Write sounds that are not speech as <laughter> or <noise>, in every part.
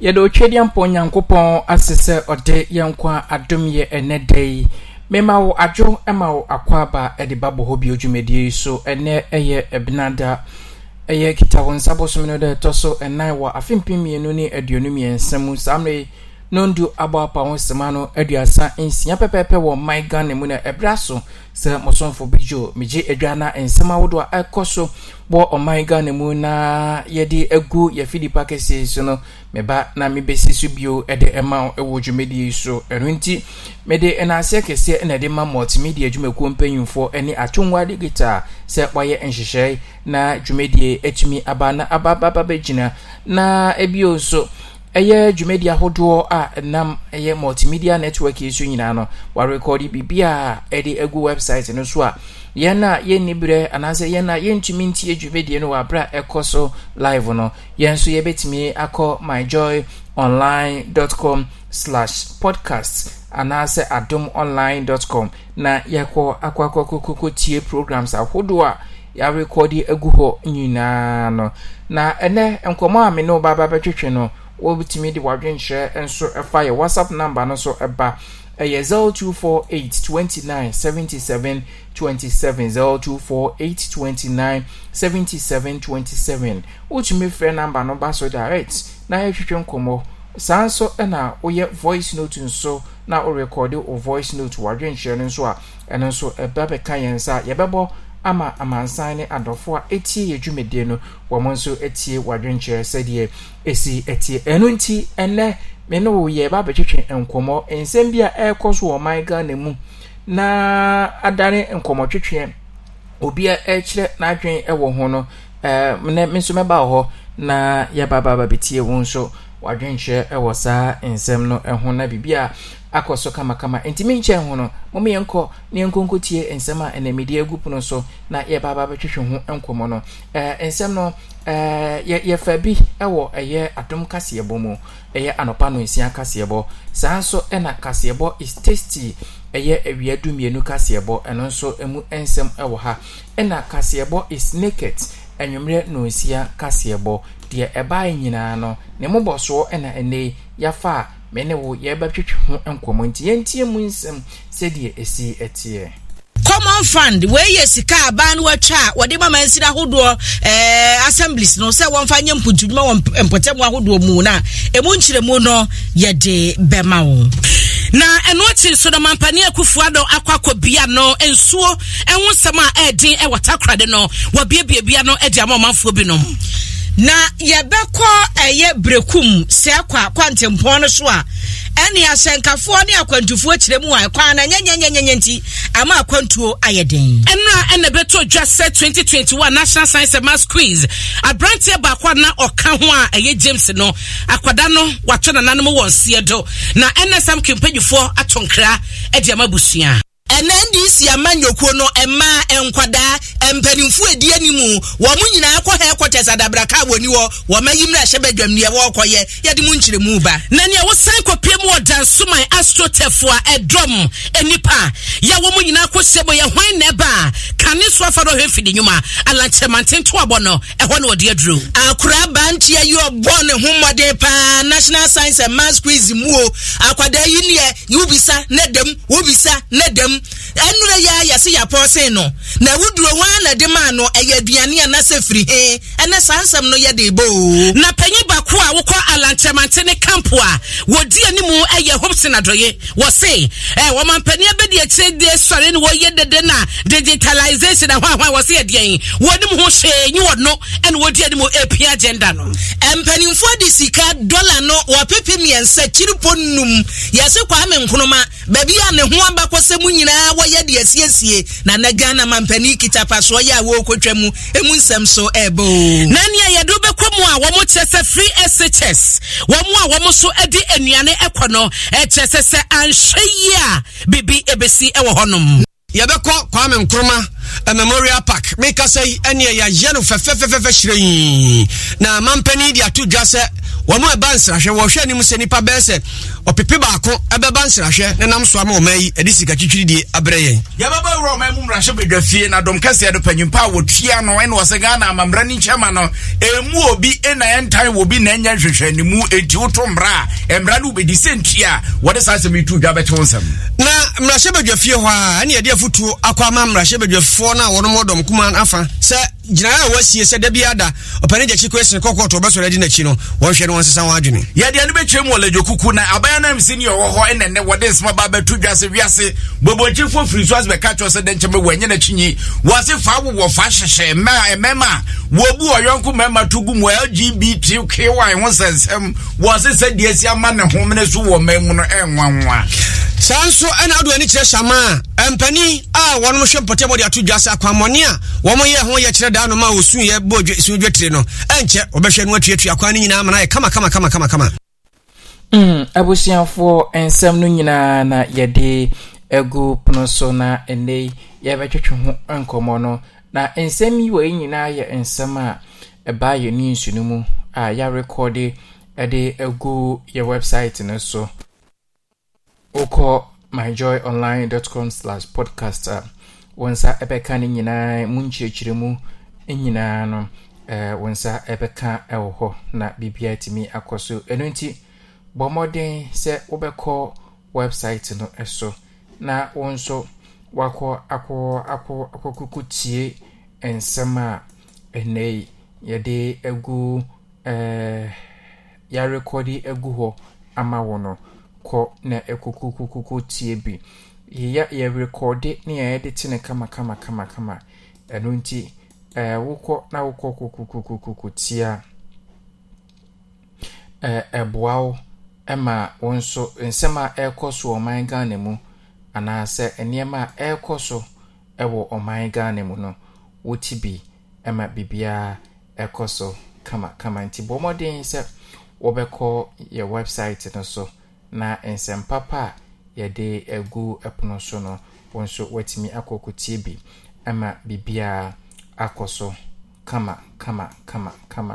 yɛde otwe deɛ mpɔ nyankopɔn ase sɛ ɔde yɛn nkwa adom yɛ ɛnɛ da yi mema wo adwo ma wo akwaaba de ba bɔ hɔ bio dwumadie yi so ɛnɛ yɛ ɛbenada ɛyɛ kita wo nsa bosom no dɛ ɛtɔ so ɛnan wɔ afe mpem mmienu ne aduonu mmiɛnsa mu saa mmerɛ nondu abaapa ho sema no aduasa nsia wo wɔ man ghana mu na ɛberɛ so sɛ mosomfo bidwo megye adwa na nsɛm ahodoɔ a ɛkɔ so wɔ ɔman ghana mu na yɛde agu yɛfi nipa kɛseɛ so no meba na mebɛsi so bio ɛde e ema e wo ɛwɔ dwumadie so ɛno nti mede nnaseɛ kɛseɛ na ɛde e ma multimedia adwumakuo mpanyimfoɔ ne atungwa digital se wɔayɛ nhyehyɛe na dwumadie atumi aba na abababa bɛgyina na ebio nso ɛyɛ dwumadi ahodoɔ a ɛnam ɛyɛ multimedia network yi so nyinaa no warekɔde biribi a ɛde agu website no so a yɛn a yɛnni berɛ anaasɛ yɛn a yɛntumi ntie dwumadie no wɔ aberɛ a ɛkɔ so live no yɛn nso yɛbɛtumi akɔ myjoy com slash podcast anaasɛ adom online com na yɛkɔ akɔ akɔkɔkɔkɔ tie programs ahodoɔ a yɛarekɔde agu hɔ nyinaa no na ɛnɛ nkɔmmɔ a me ne wo baaba bɛtwetwe no wobɛtumi de wadwenhyerɛ nso ɛfa yɛ whatsapp number no so ɛba ɛyɛ 0248 29 77 27 0248 29 77 27 wotumi frɛ number no ba so direct na yɛhwehwɛ nkɔmmɔ saa nso na woyɛ voice note nso na worekɔde o voice note wadwenhyerɛ no nso a ɛno nso ɛba bɛka yɛn nsa yɛbɛbɔ ama amansan ne adɔfoɔ a ɛtie yɛ dwumadie no wɔn nso tie wadwenkyerɛ sɛdeɛ esi tie ɛno nti ɛnɛ me ne wo yɛ ba abɛtwitwe nkɔmmɔ nsɛm bi a ɛrekɔ so wɔ ɔman ghana mu na adane nkɔmmɔtwitwe obi a ɛrekyerɛ n'adwene ɛwɔ ho no ɛɛ ne me nso mɛba wɔ hɔ na yɛba ba ba bɛtie wɔn nso wadwenkyerɛ ɛwɔ saa nsɛm no ɛho na biribi a. akɔ so kamakama nti me nkyɛn ho no moma yɛnkɔ na yɛnkɔnkɔtie nsɛm a ɛnamidi agu pono so na yɛbaaba bɛtwehwe ho nkɔmmɔ no eh, nsɛm no eh, yɛfa bi wɔ ɛyɛ adom kaseɛbɔ mu ɛyɛ anɔpa no nsia kaseɛbɔ saa nso ɛna kaseɛbɔ is tasty ɛyɛ awia dumienu kaseɛbɔ ɛno nso mu nsɛm wɔ ha ɛna kaseɛbɔ is naked anwummerɛ nonsia kaseɛbɔ deɛ ɛbaeɛ nyinaa no ne mmobɔsoɔ ɛna ɛnɛ yafa a me ne wo yɛbɛtwetwe ho nkɔmmɔ nti yɛntie mu nsɛm sɛdeɛ ɛsi ɛteɛ common fund wei yɛ sika aban no watwa a wɔde ma mansin ahodoɔ ɛɛ eh, assemblies no sɛ wɔmfa nyɛ mpotudwuma wɔ mpɔtɛmu ahodoɔ mu na emu nkyerɛmu no yɛde bɛma wɔn. na ɛno akyi nso no mampane akufo ado akɔ akɔbia no nsuo ɛho nsɛm a ɛɛden ɛwɔ takorade no wɔbiebiebia no ɛde ama ɔmanfoɔ binom na yɛbɛkɔ ɛyɛ brekum sɛ kɔ akwantempɔn no so a ɛne ahyɛnkafoɔ ne akwantufoɔ kyerɛ mu a ɛkwan no nyɛnyɛnyɛnyɛnyɛ nti ama akwantuo ayɛ den ɛnna ɛna ɛbɛtɔ dwa sɛ 2021 national science and math quiz aberanteɛ baako na ɔka ho a ɛyɛ james no akwadaa no wato nananom wɔ nseɛ do na ɛna sam kempanyifoɔ ato nkra de ama busua ɛnɛ ndc amanyokuo no mmaa nkwadaa mpanimfo edi anim wɔn nyinaa kɔ headquarters adabraka wɔ ni hɔ wɔn ayi mmerɛ ahyɛ badwam nea wɔrekɔyɛ yɛde mu nkyerɛmu ba. na nea wɔsan kɔpie mu wɔ dansoman astrotef a ɛdɔm e e nipa yɛ wɔn nyinaa kɔ hyɛ bɔ yɛ hwan na ɛba kane so afa dɔ hwɛ mfidi nnwuma alankyɛmanten to abɔ no ɛhɔ e na wɔde aduro. akora abanteɛ yi ɔbɔ ne ho mmɔden paa national science and maths quiz mu o akwadaa yi neɛ yɛ wobisa ne dɛm wobisa ne dɛm nsɛm ɛnura yi a yɛsi yɛapɔɔsen no na wuduro wɔn na de maa no ɛyɛ aduane a n'asɛ firi he ɛnɛ saa nsɛm no yɛ de ebo. na panyin baako a wokɔ alantɛmante ne kampo a wodi anim ɛyɛ hopson adɔye wɔse ɛ wɔn mpanyin abɛdi akyire de sɔre ne wɔyɛ dede na digitalization ahoa ahoa wɔse yɛ deɛ wɔnim ho hyɛn nyi wɔ no ɛna wodi anim epi agenda no. mpanimfoɔ de sika dɔla no wɔpepe mmiɛnsa kyiripo num yɛsi kwame nkruma baabi a nyinaa wɔyɛ deɛ siesie na na ghana mampanin kita pasoɔ yɛ a wɔrekɔtwa mu emu nsɛm so ɛɛbɛ o. na nea yɛde wobɛkɔ mu a wɔn kyɛ sɛ free shs wɔn a wɔn so de nnuane kɔ no ɛkyɛ sɛ sɛ anhwɛ yie a bibi ebesi wɔ hɔnom. yɛbɛkɔ kwame nkrumah. A memorial park meka sɛ ɛneɛ yɛayɛ no fɛfɛfɛfɛfɛ hyerɛi na mampani de ato dwa sɛ wɔn a e ɛba nsrahwɛ wɔhwɛ anim sɛ nipa bɛɛ sɛ ɔpepe baako ɛbɛba nsrahwɛ ne nam so ama ɔma yi ɛde sika twitwiri die abrɛ yɛn. yababa awura ɔman mu mmarahyɛ badwa fie na dɔm kɛseɛ do panyimpa a wɔtua no ɛna wɔsɛ ghana amammerɛ ne nkyɛma no ɛmu obi ɛna ɛntan wɔ bi na ɛnyɛ nhwehwɛ ne mu enti woto mmra a mmra no wobɛdi sɛ ntua a wɔde saa asɛm yi tu dwa bɛte wo nsɛm. na mmarahyɛ badwa fie hɔ a ɛne yɛde afotuo akɔ ama mmarahyɛ badwa amanfoɔ no a wɔnom wɔ dɔm kumaa no afa sɛ gyinaeɛ a wasie sɛ da biada ɔpɛne gya kyi kwesene kɔkɔɔto ɔbɛsɔre adi n'akyi no wɔnhwɛ no wɔnsesa wɔn adwene yɛdeɛ no bɛtwa mu wɔ ladwokuku na abaya no msi ne ɔwɔ hɔ ɛnɛnɛ wɔde nsoma ba bɛto dwa se wiase bɔbɔnkyifoɔ firi so ase bɛka kyerɛ sɛ dɛ nkyɛmɛ wɔanyɛ n'akyi nyi wɔase fa wowɔ fa hyehyɛ mmarima a wɔbu ɔyɔnko mmarima to gu mu lgbtq a ɛho nsɛnsɛm wɔse sɛ deɛ si ama ne homene so wɔ ma mu no ɛnwanwa saa nso ɛna ado ani kyerɛ hyama a mpanin a wɔnom hwɛ mpɔtɛbɔde ato dwa se akwammɔne a wɔmyɛ ho yɛ daa no ma wɔsuyɛ bɔ sudwatire no ɛnkyɛ wɔbɛhwɛ no atuatua kwan no nyinaa ma kama kama kamakamakamakama hmm, abusuafoɔ nsɛm no nyinaa na yɛde agu pono so na ɛnɛ yɛbɛtwetwe ho nkɔmmɔ no na nsɛm yi wɔ nyinaa yɛ nsɛm a ɛbaa yɛ ne nsu no mu a yɛarekɔde e ɛde agu yɛ website no so wokɔ myjoyonline.com slash podcast a wɔn nsa ɛbɛka e no nyinaa mu nkyerɛkyerɛ mu E nyinaa no eh, wo nsa bɛka wɔ hɔ na biribiaa tumi akɔ so ɛno nti bɔ mmɔden sɛ wobɛkɔ website no so na wo nso wakɔ akɔkoko tie nsɛm a yi yɛde agu eh, yarekɔde agu hɔ ama wo no kɔ na ɛkokokokoko tie bi yɛrekɔde ne yɛyɛde te ne kama kama kama kama Eh, wokɔ na wokɔ kokokokoko tia ɛɛ eh, ɛboa wo ɛma wo nso nsɛm a ɛrekɔ so wɔ ɔman ghana mu anaasɛ nneɛma a ɛrekɔ so wɔ ɔman ghana mu no wɔti bi ma biribiara ɛkɔ so kamakama nti bɔ mmɔden sɛ wɔbɛkɔ yɛ website no so na nsɛm papa a yɛde agu ɛpono so no wɔn nso wɔatumi akɔkɔtie bi ma biribiara. akɔ so kama kama kama kama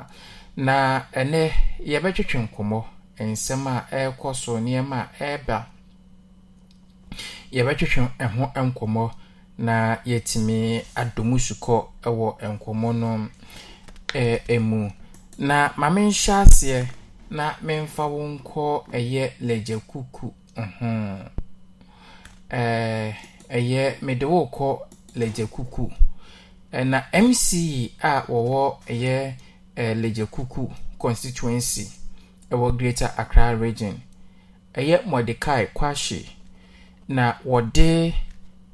na ɛnɛ yɛbɛtwetwe nkɔmɔ nsɛm a ɛrekɔ so nneɛma a ɛreba yɛbɛtwetwe ɛho nkɔmɔ na yɛtumi adɔmu sukɔ ɛwɔ nkɔmɔ no ɛmu eh, na maame nhyɛ aseɛ na memfa wo nkɔ ɛyɛ lagya kuku ho eh, ɛyɛ mede wo kɔ lagya kuku. na mc a wɔwɔ ɛyɛ ɛɛ legyekuku constituency ɛwɔ greater accra region ɛyɛ mordecai kwahye na wɔde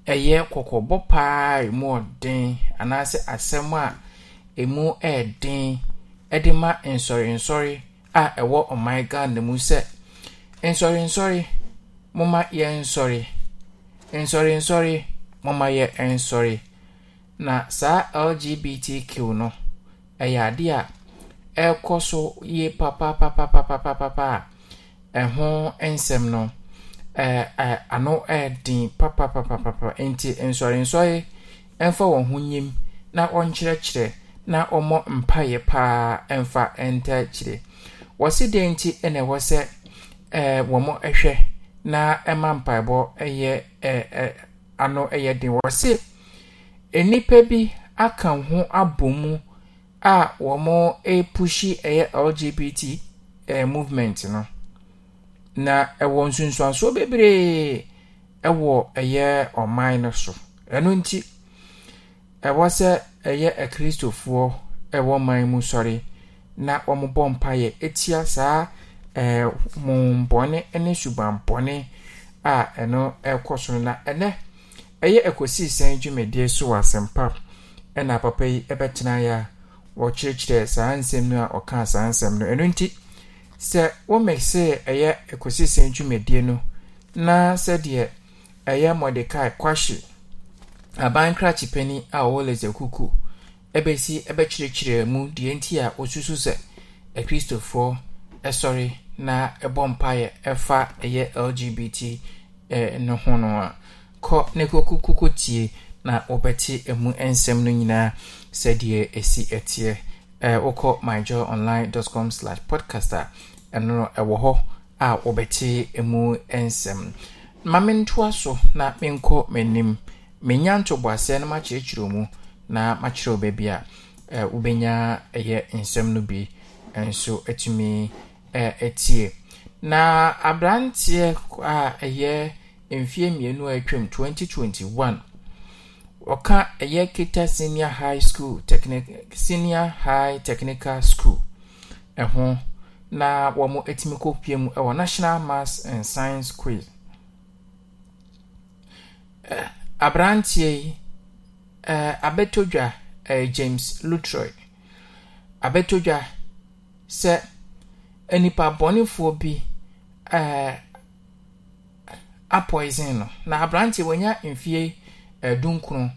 ɛyɛ kɔkɔbɔ paa emu ɔden anaasɛ asɛm a emu ɛɛden ɛde ma nsɔrensɔre a ɛwɔ ɔman ghana mu sɛ nsɔrensɔre moma yɛ nsɔre nsɔrensɔre moma yɛ nsɔre. na saa lgbtq no ɛyɛ ade a ɛrekɔ so yie papapapapapapa a ɛho nsɛm no ano ɛden papapapapa nti nsɔre nsɔrensɔre ɛmfa wɔn ho nyim na ɔnkyerɛkyerɛ na ɔmɔ mpaeɛ paa ɛmfa ntakyire wɔsi den ti ɛna ɛwɔ sɛ ɛɛ wɔn hwɛ na ɛma mpaebɔ ɛyɛ ɛɛ ano ɛyɛ den wɔsi. nnipa bi aka ho abɔ a wɔrepushi ɛyɛ lgbt ɛɛ eh, movement no na ɛwɔ nsonsansoɔ bebree ɛwɔ ɛyɛ ɔman no so ɛno nti ɛwɔ sɛ ɛyɛ akristofoɔ ɛwɔ man mu sɔre na wɔbɔ mpaeɛ. ɛtia saa ɛɛ eh, mombɔne ne subanpɔne a ɛno ɛkɔ so na ɛnɛ ɛyɛ ɛkɔsii sɛn dwumadie so wɔ asɛmpa ɛna papa yi ɛbɛtena ya wɔkyerɛkyerɛ saa nsɛm no a ɔkaa saa nsɛm no ɛno nti sɛ womɛk sɛ ɛyɛ ɛkɔsii sɛn dwumadie no na sɛdeɛ ɛyɛ mɔdekae kwahye aban krakye a ɔwɔ lɛsɛ kuku ɛbɛsi ɛbɛkyerɛkyerɛ mu deɛ nti a ɔsusu sɛ akristofoɔ ɛsɔre na ɛbɔ mpaeɛ ɛfa ɛyɛ lgbt eh, no ho no a kɔ ne kɔkɔkɔkɔ tie na wɔbɛte ɛmu nsɛm no nyinaa sɛdeɛ ɛsi ɛteɛ ɛɛ wokɔ myjoyonline.com slash podcast a ɛno ɛwɔ hɔ a wɔbɛte ɛmu nsɛm maame ntoa so na menkɔ m'anim menya ntoboaseɛ no makyerɛkyerɛ mu na makyerɛ wo baabi a ɛɛ wobɛnya ɛyɛ nsɛm no bi nso atumi ɛɛ ɛtie na aberanteɛ a ɛyɛ mfie mmienu a atwam 2021 ɔka ɛyɛ kita senior high school technic senior high technical school ɛho na wɔn atumi kɔpie mu ɛwɔ national maths and science quiz eh, aberanteɛ yi eh, abɛtodwa eh, james lutroy abɛtodwa sɛ nipa bɔnefoɔ bi ɛɛ. apoison no na aberante wanya mfie eh, dunkron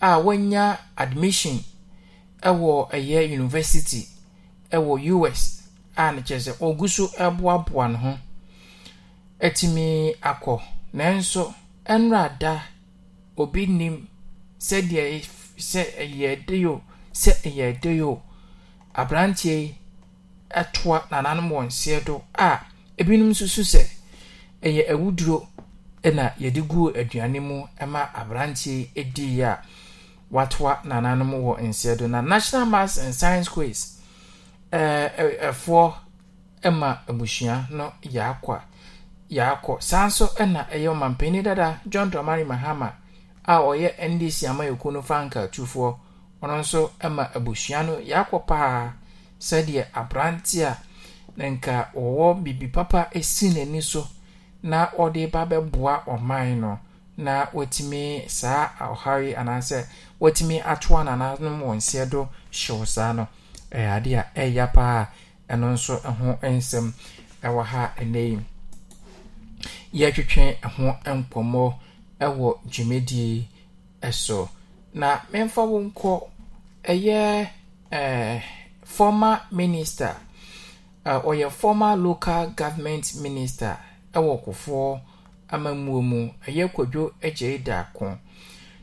a wanya admission ɛwɔ ɛyɛ university ɛwɔ us a no kyerɛ sɛ ɔgu so boaboa ne ho atumi akɔ nanso ɛnora da obi nim sɛdeɛ sɛ ɛyɛ de yo sɛ ɛyɛ de yo aberanteɛ yi ɛtoa nananom wɔn seɛ do a ebinom nso so sɛ ɛyɛ awuduro na yɛde gu aduane mu ma aberanteɛ diiɛ a watoa nananom wɔ nseɛ do na national mass and science quas ɛfoɔ ma abusua no yɛakɔ yɛakɔ saa nso na ɛyɛ ɔmanpani dada john dramary mahama a ɔyɛ ndc ama yɛku no franka tufoɔ ɔno nso ma abusua no yɛakɔ paa sɛdeɛ aberante a na nka wɔwɔ bibi papa si n'ani so na ɔde ba bɛboa ɔman no na wɔtumi saa ɔhare anaasɛ wɔtumi atoa nananom wɔn nseɛ do hyew saa no ɛyɛ ade a ɛyɛ paa ɛno nso ɛho nsɛm ɛwɔ ha ɛnɛ yi yɛtwetwe ɛho nkɔmmɔ ɛwɔ dwumadie ɛso na memfa wo nkɔ ɛyɛ ɛɛ eh, former minister ɔyɛ former local government minister wɔ kofoɔ amammuo mu ɛyɛ kwadwo agyei daako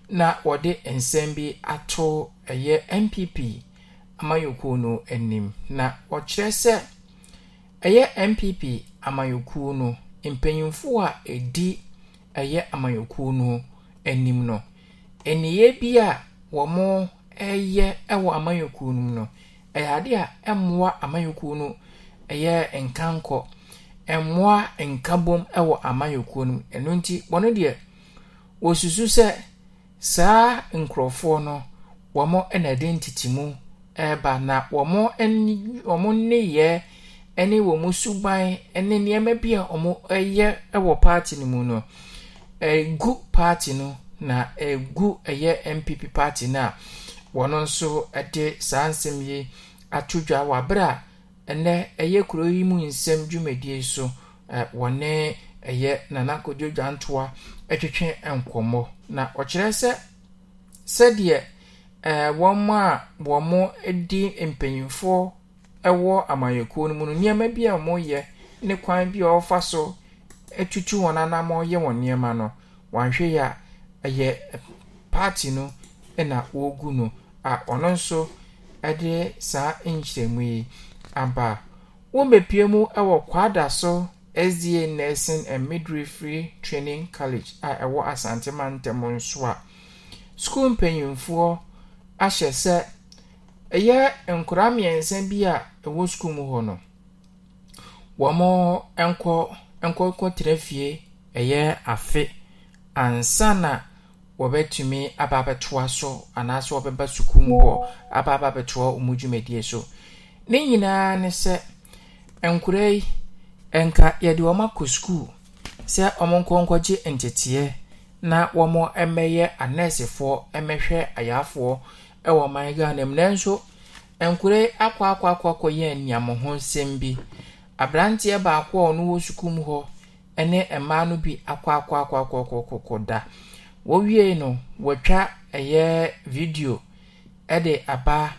na wɔde nsɛm bi ato ɛyɛ npp amayɔkuo no anim na wɔkyerɛ sɛ ɛyɛ npp amayɔkuo no mpanyinfoɔ a ɛdi ɛyɛ amayɔkuo no anim no nniyɛ bi a wɔreyɛ wɔ amayɔkuo no mu no ɛyɛ adeɛ a ɛmmoa amayɔkuo no ɛyɛ nkankɔ mmoa nkabom wɔ amannyɔkuo no mu ɛno nti wɔn deɛ wɔsusu sɛ saa nkurɔfoɔ no wɔn na ɛde mu ɛreba na wɔn ani wɔn nneyɛɛ ne wɔn suban ne nneɛma bi a wɔyɛ wɔ paati no mu no egu paati no na egu ɛyɛ npp paati no a wɔn nso de saa nsɛm yi ato dwa wɔ abere a. ɛnɛ ɛyɛ kuro yi mu nsɛm dwumadie so wɔne ɛyɛ nanakodwo dwantoa twetwe nkɔmɔ na ɔkyerɛ sɛ sɛdeɛ ɛɛ wɔn mu a wɔn mo di mpanyinfoɔ ɛwɔ amanyɔkuo no mu no nneɛma bi a wɔyɛ ne kwan bi a wɔfa so atutu wɔn anam ɔyɛ wɔn nneɛma no wɔahwɛ yɛ a ɛyɛ paati no na wɔregu no a ɔno nso ɛde saa nkyerɛmu yi aba womepie mu wɔ kwada so sda nursing and midwifery training college a ɛwɔ asantema ntam nso a skuul mpanyimfoɔ ahyɛ sɛ ɛyɛ nkora mmiɛnsa bi a ɛwɔ skuul mu hɔ no wɔn nkɔ tere fie ɛyɛ afe ansa na wɔbɛtumi aba abɛtoa so anaasɛ wɔbɛba skuul mu hɔ aba aba abɛtoa wɔn dwumadie so ne nyinaa ne sɛ nkwadaa yi nka yɛde wɔn akɔ sukuu sɛ wɔn nkɔ gye nteteɛ na wɔn mmɛyɛ anɛɛsefoɔ mmɛhwɛ ayafoɔ wɔ ɔman ghana mu nanso nkwadaa yi akɔ akɔ akɔ akɔ yɛ ho nsɛm bi aberanteɛ baako a ɔno wɔ sukuu mu hɔ ne mmaa no bi akɔ akɔ akɔ akɔ akɔ akɔ akɔ da wɔwie no wɔtwa ɛyɛ video de aba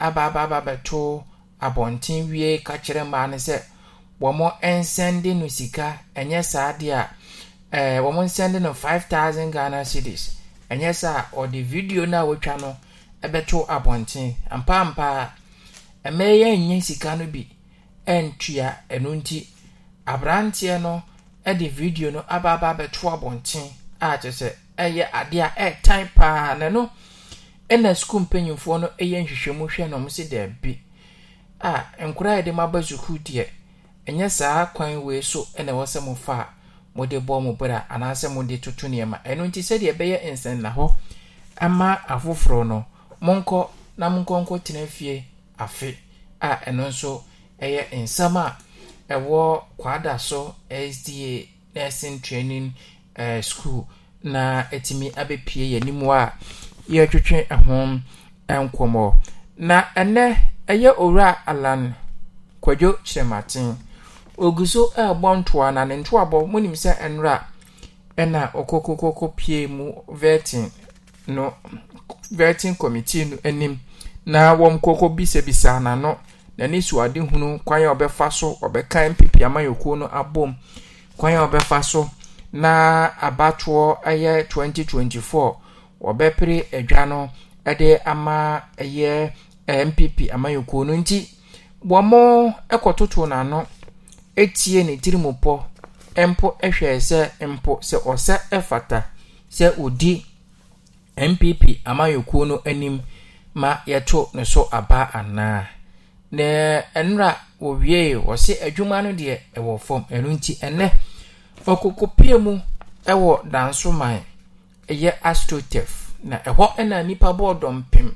aba aba aba bɛtoo. abɔnten wie ka kyerɛ mmaa no sɛ wɔn nsɛnde no sika ɛnyɛ saa deɛ a ɛɛ wɔn nsɛnde no five thousand ghana cedis ɛnyɛ saa ɔde video no a wɔatwa no ɛbɛto abɔnten ampampaa mmaa yi ɛnyɛ sika no bi ɛntua ɛno nti aberanteɛ no ɛde video no aba aba abɛto abɔnten a kyerɛ sɛ ɛyɛ adeɛ a ɛɛtan paa na no ɛna sukuu mpanyinfoɔ no ɛyɛ nhwehwɛmu hwɛ na wɔn si dɛɛbi. a nkwadaa yɛde mo aba sukuu deɛ ɛnyɛ saa kwan wei so na ɛwɔ sɛ mofa a mode bɔ mo bra anaasɛ mode toto nneɛma ɛno nti sɛdeɛ ɛbɛyɛ nsɛnna hɔ ama afoforɔ no monkɔ na monkɔ nkɔ tena fie afe a ɛno nso ɛyɛ nsɛm a ɛwɔ kwada so sda nursing training uh, school na ɛtumi abɛpie yɛn anim a yɛtwetwe ho nkɔmmɔ na ɛnɛ ɛyɛ owura alan kwadwo kyerɛmaten ogu so ɛrebɔ ntoa na ne ntoa ntoabɔ munim sɛ nnora ɛna ɔkɔkɔkɔkɔ pie mu vetin no vetin committee no anim na wɔn kɔkɔ bisabisa n'ano na ne n'ani ade adehunu kwan a ɔbɛfa so ɔbɛkan pipi amayɔkuo no abom kwan a ɔbɛfa so na abatoɔ ɛyɛ 2024 wɔbɛpere adwa no ɛde ama ɛyɛ npp amanyɔkuo no nti wɔn kɔtoto n'ano etie ne tirim pɔ mpo hwɛ sɛ mpo sɛ ɔsɛ ɛfata sɛ odi npp amanyɔkuo no anim ma yɛto ne so aba anaa na nnura wɔwie wɔsi adwuma no deɛ ɛwɔ fam ɛno nti ɛnɛ ɔkoko pie mu ɛwɔ dansoman ɛyɛ astrotef na ɛhɔ ɛna nipa bɔɔ dɔmpem.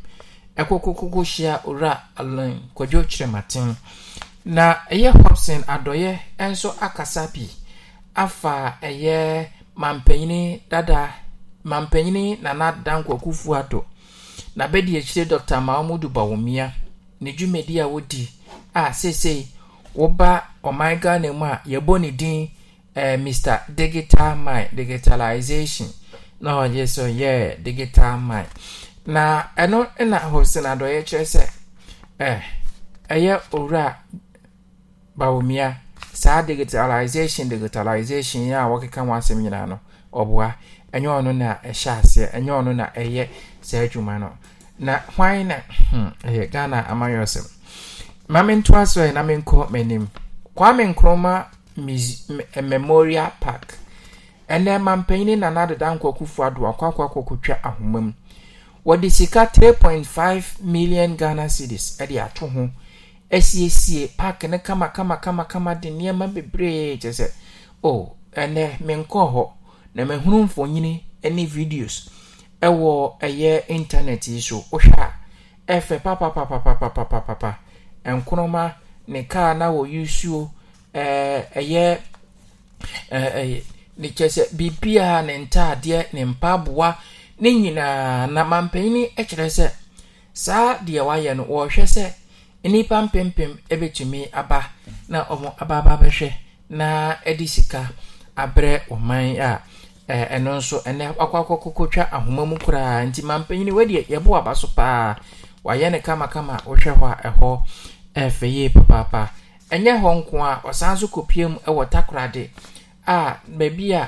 ɛkɔkɔkɔkɔ hyia owura alan kwadwo kyerɛmaten na ɛyɛ hobson adɔyɛ nso akasa bi afa ɛyɛ mampanyini dada mampanyini nana dankwakufu ado na bɛdi akyire dr mahamudu bawomia ne dwumadi a wodi a seesei woba ɔman ghana mu a yɛbɔ ne din eh, mr digital mind digitalization na ɔyɛ so ɔyɛ digital mind na ɛno na hosin adɔyɛ kyerɛ sɛ ɛyɛ owura bawomia saa digitalization digitalization a wɔkeka ho asɛm nyinaa no ɔboa ɛnyɛ ɔno na ɛhyɛ aseɛ ɛnyɛ ɔno na ɛyɛ saa adwuma no na hwan na hmm, ɛyɛ ghana amanyɛ ɔsɛm ma mentoa so ɛ na menkɔ m'anim kwame nkrɔma memorial park ɛnɛ mampanyin nana deda nkɔkufo adoa kɔakɔakɔkɔtwa ahoma mu wɔde sika three point five million ghana cedis ɛde ato ho ɛsiesie park ne kamakamakama de nneɛma bebree kyɛ sɛ o ɛnɛ menkɔɔ hɔ na mahunu mfonyini ne videos ɛwɔ ɛyɛ internet yi so wohwɛ a ɛfɛ papapapapapapapa nkoroma ne kaa na wɔyɛ suo ɛɛ ɛyɛ ɛɛ ɛyɛ ne kyɛ sɛ biribiara ne ntaadeɛ ne mpaaboa. ne nyinaa na mampanyin kyerɛ sɛ saa deɛ wayɛ no wɔrehwɛ sɛ nnipa mpempem bɛtumi aba na wɔn aba aba bɛhwɛ na de sika abrɛ ɔman a ɛno nso ɛnɛ akɔ twa ahoma mu koraa nti mampanyin wadeɛ yɛbɔ aba so paa wayɛ no kamakama wohwɛ hɔ a ɛhɔ ɛfɛ yie papaapa ɛnyɛ hɔ nko a ɔsan so kɔpie mu wɔ takoradi a baabi a.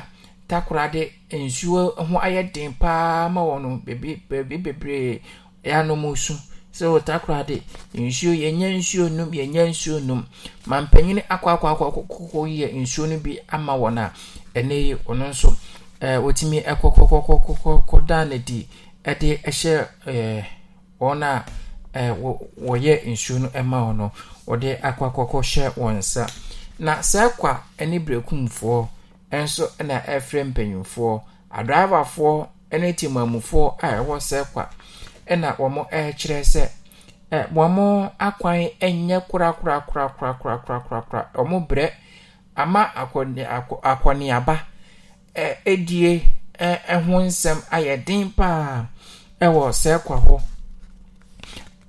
takoradi nsuo ho ayɛ den paa ma wɔn no beebi bebree so sɛ wɔ takoradi nsuo yɛnyɛ nsuo nom nsuo nom ma mpanyin akɔ akɔ akɔ nsuo no bi ama wɔn a ɛnɛ yi ɔno nso ɛɛ wɔtumi ɛkɔ kɔkɔkɔkɔkɔ dan ne di ɛde ɛhyɛ ɛɛ wɔn nsuo no ɛma wɔn no wɔde akɔ na saa kwa ɛne nso na efere mpanyinfoɔ adraivafoɔ ne temamufoɔ a ɛwɔ sɛkwa na wɔn ɛrekyerɛ sɛ ɛ wɔn akwan nyɛ korakorakorakorakorakorakorakora wɔn brɛ ama akɔne akɔneaba ɛ edie ɛ ɛho nsɛm ayɛ den paa ɛwɔ sɛkwa hɔ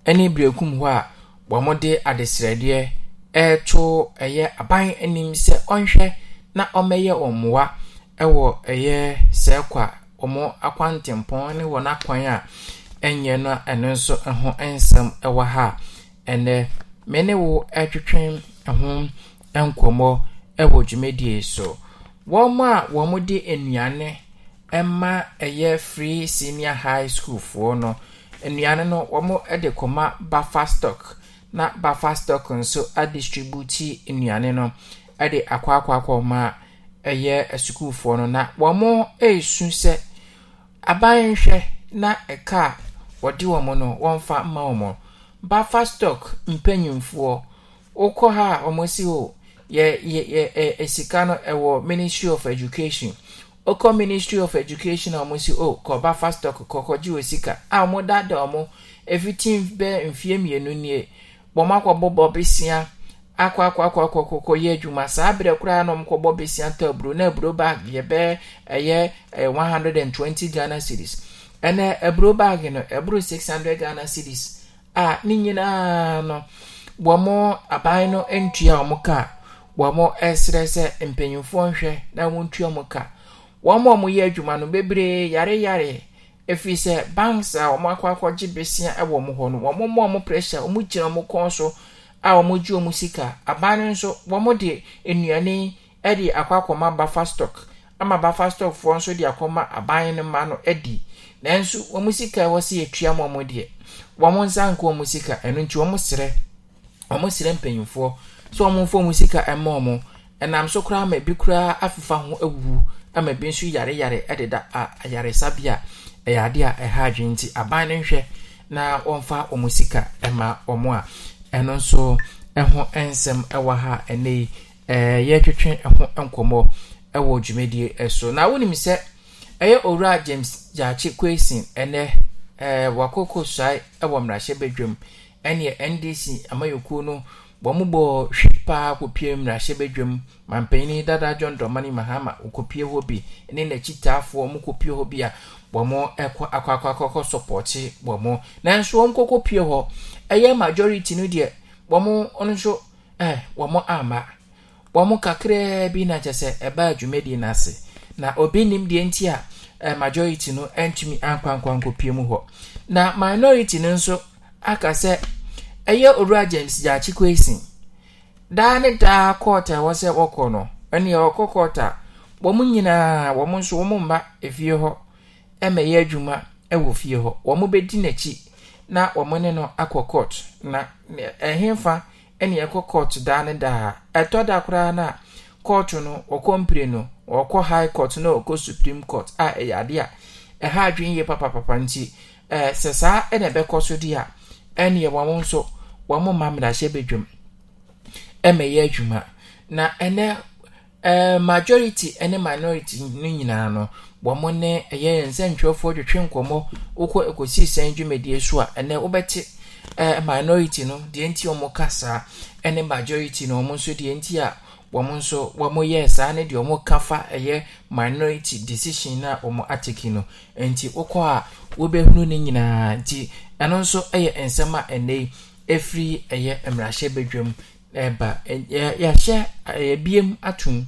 ɛne birekum hɔ a wɔn de adesrɛdeɛ ɛreto ɛyɛ aban anim sɛ ɔnhwɛ. na ɔmɛyɛ wɔn ɛwɔ ɛyɛ sɛɛ kwa wɔn akwantempɔn ne wɔn akwan a ɛnyɛ no ɛno nso ho nsɛm ɛwɔ ha ɛnɛ me ne wo ɛtwetwe ho nkɔmmɔ ɛwɔ dwumadie so wɔn a wɔn de nnuane ɛma ɛyɛ free senior high school foɔ no nnuane no wɔn de kɔma bafa stock na bafa stock nso adistributi nnuane no. de akɔ akɔ akɔ ma ɛyɛ asukuufoɔ no na wɔn mo resu sɛ na ɛka a wɔde wɔn no wɔmfa mma wɔn bafa stock mpanyinfoɔ wokɔ ha a wɔn si yɛ yɛ yɛ ɛ no ɛwɔ ministry of education ministry of education a o oh, kɔ bafa stock sika a wɔn mfie mmienu nie wɔn bɔ akɔ akɔ akɔ akɔ akɔ akɔ yɛ adwuma saa abirɛ koraa na ɔmo kɔbɔ besia aburo na aburo bag yɛ bɛɛ ɛyɛ ɛyɛ one hundred and twenty ghana series ɛnɛ aburo bag no aburo six hundred ghana series a ne nyinaa no wɔn aban no ntua wɔn kaa wɔn ɛsrɛ sɛ mpanyinfoɔ nhwɛ na wɔn ntua wɔn ka wɔn a wɔyɛ adwuma no bebree yare efi sɛ banks a wɔn akɔ gye besia ɛwɔ wɔn hɔ no wɔn mo a wɔn pressure wɔn gyina wɔn kɔn so. a wɔgye wɔn sika aban no nso de nnuane de akɔ akɔma bafa stock ama bafa stock foɔ nso de akɔma aban no ma no ɛdi nanso wɔn sika ɛwɔ sɛ yɛtua mu wɔn deɛ wɔn nsa nka wɔn sika ɛno nti wɔn srɛ wɔn srɛ mpanyinfoɔ sɛ wɔn mfa wɔn sika ɛma wɔn ɛnam so koraa ama bi koraa afifa ho awuwu ama bi nso yare yare ɛdeda a ayaresabea ɛyɛ adeɛ a ɛha adwene aban no nhwɛ na wɔmfa wɔn sika ɛma wɔn a. ɛno nso ho nsɛm ɛwɔ ha ɛnɛ yi yɛtwetwe ɛho nkɔmɔ ɛwɔ dwumadie so na wonim sɛ ɛyɛ owura james gyaakye kwesin ɛnɛ ɛɛ wakoko suae wɔ mmarahyɛ badwam ɛneɛ ndc amayɛkuo no wɔn bɔ hwi paa kɔpie mmarahyɛ badwam mampanyin dada john dramani mahama wɔkɔpie hɔ bi ne n'akyitaafoɔ wɔn kɔpie hɔ bi a wɔn akɔakɔakɔkɔ sɔpɔte wɔn nanso wɔn kɔkɔ pie hɔ ɛyɛ majority no deɛ wɔn nso ɛɛ wɔn ama wɔn kakraa bi na kyɛ sɛ ɛbaa dwumadie n'ase na obi nim deɛ nti a ɛɛ majority no ntumi ankwankwankɔ pie mu hɔ na minority no nso aka sɛ ɛyɛ owura james gyaakye kwesin daa ne daa kɔɔta ɛwɔ sɛ wɔkɔ no ɛnea wɔkɔ kɔɔta wɔn nyinaa wɔn nso wɔn mma efie hɔ. ma ɛyɛ adwuma wɔ fie hɔ wɔn bɛdi n'akyi na wɔn ne no akɔ court na ɛhenfa ne ɛkɔ court daa ne daa ɛtɔ da koraa na court no wɔkɔ mpire no wɔkɔ high court na wɔkɔ supreme court a ɛyɛ ade a ɛha adwene yie papapapa nti ɛɛ sɛ saa na ɛbɛkɔ so di a ɛneɛ wɔn nso wɔn ma mmerahyɛ badwam ma ɛyɛ adwuma na ɛnɛ ɛɛ majority ne minority no nyinaa no. wɔn ne ɛyɛ nsɛntwerɛfoɔ twetwe nkɔmɔ wokɔ ekosi sɛn dwumadie so a ɛnɛ wobɛte ɛɛ minority no deɛ nti wɔn ka saa ɛne majority no wɔn nso deɛ nti a wɔn nso wɔn yɛ saa ne deɛ wɔn ka fa ɛyɛ minority decision na wɔn ateke no nti wokɔ a wobɛhunu ne nyinaa nti ɛno nso ɛyɛ nsɛm a ɛnɛ yi efiri ɛyɛ mmarahyɛ badwam ɛɛba ɛyɛ yɛahyɛ ɛyɛ biem atum.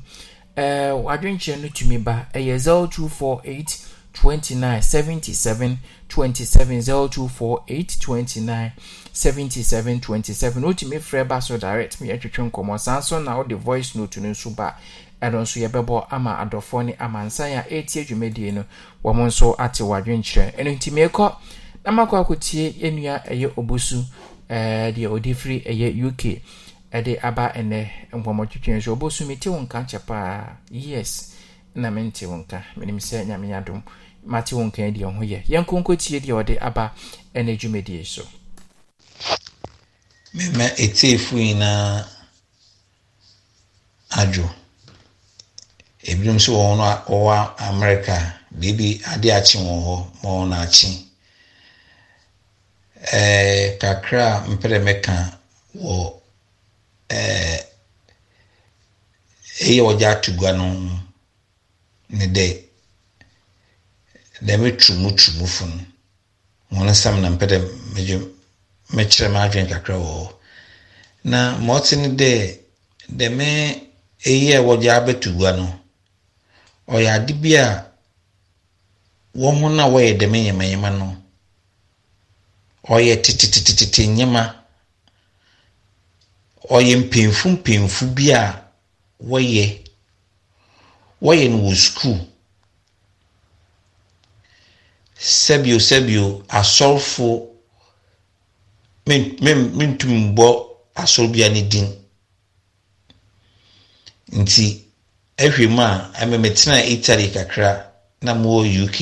Eh, wadwenkyerɛ no tumi ba ɛyɛ 0248 29 77 27 0248 29 77 27 wotumi frɛ ba so direct meyɛtwetwe nkɔmmɔ saa nso na wode voice note no nso ba ɛno nso yɛbɛbɔ ama adɔfoɔ ne amansan a ɛretie dwumadie no wɔn nso ate wadwenkyerɛ ɛno nti meekɔ na makɔ akɔtie yɛnua ɛyɛ obusu ɛɛ eh, deɛ ɔde firi ɛyɛ uk ɛde aba ɛnɛ nkɔmmɔtwitwi nso ɔbɔsu mete wo nka kyɛ paa yes na mente wo nka menim sɛ nyame adom mate wo nka deɛ ho yɛ tie deɛ ɔde aba ɛnɛ dwumadie so mema ɛtiefo nyinaa adwo ebinom nso wɔn no wɔwɔ amerika biribi ade akye wɔn hɔ ma wɔn akye ɛɛ kakra a mpɛrɛ mɛka wɔ ɛyɛ eh, wɔgye gua no ne dɛ dɛm tumu tumu fo wɔn na mpɛ dɛ megye mekyerɛ m'adwene kakra na ma ɔte ne dɛ dɛm ɛyi a wɔgye abɛtugua no ɔyɛ ade bi a wɔn na wɔyɛ dɛm nyamanyama no ɔyɛ tetetetete ɔyɛ mpanyinfo mpanyinfo bi a wɔyɛ wɔyɛ no wɔ sukuu sɛbio sɛbio asɔrfo mentum mbɔ asɔr bia ne din nti ahwɛ mu a ɛmɛ mɛtena italy kakra na mowɔ uk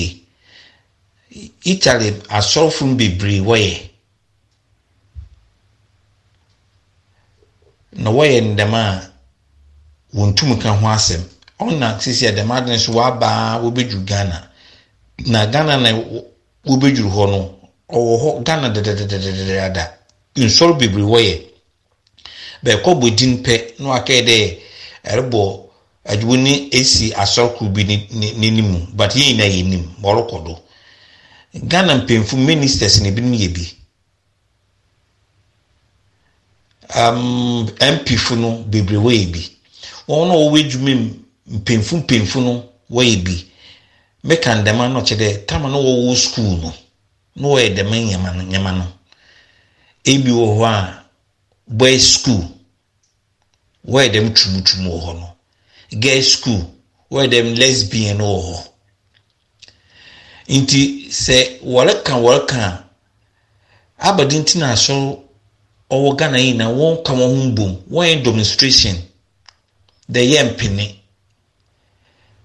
italy asɔrfo no bebree wɔyɛ. na wɔyɛ ndɛm a wɔn ka ho asɛm ɔna sisi a dɛm adi nso wabaa wɔbɛduru ghana na ghana na wɔbɛduru hɔ no ɔwɔ hɔ ghana dadadadadada nsɔrɔ bebree wɔyɛ bɛɛkɔ bɔ din pɛ na wakɛɛ dɛ ɛrebɔ adwo ne esi asɔrɔkuru bi n'anim but yɛn nyinaa yɛ ɔrekɔ do ghana mpanyinfo ministers na ebinom yɛ bi. mpfo um, no bebree wɔyɛ bi wɔn a wɔwɔ adwuma mu mpemfu mpemfu no wɔyɛ bi meka ndɛma no kyerɛ dɛ tam no wɔwɔ sukuu no na wɔyɛ dɛm nyɛma no nyɛma no ebi wɔ hɔ a school wɔyɛ dɛm tumutum wɔ hɔ no girls school wɔyɛ dɛm lesbian no wɔ nti sɛ wɔreka wɔreka abadintina ɔwɔ ghana yi na wɔn ka wɔn ho bom wɔn yɛ demonstration de yɛ mpene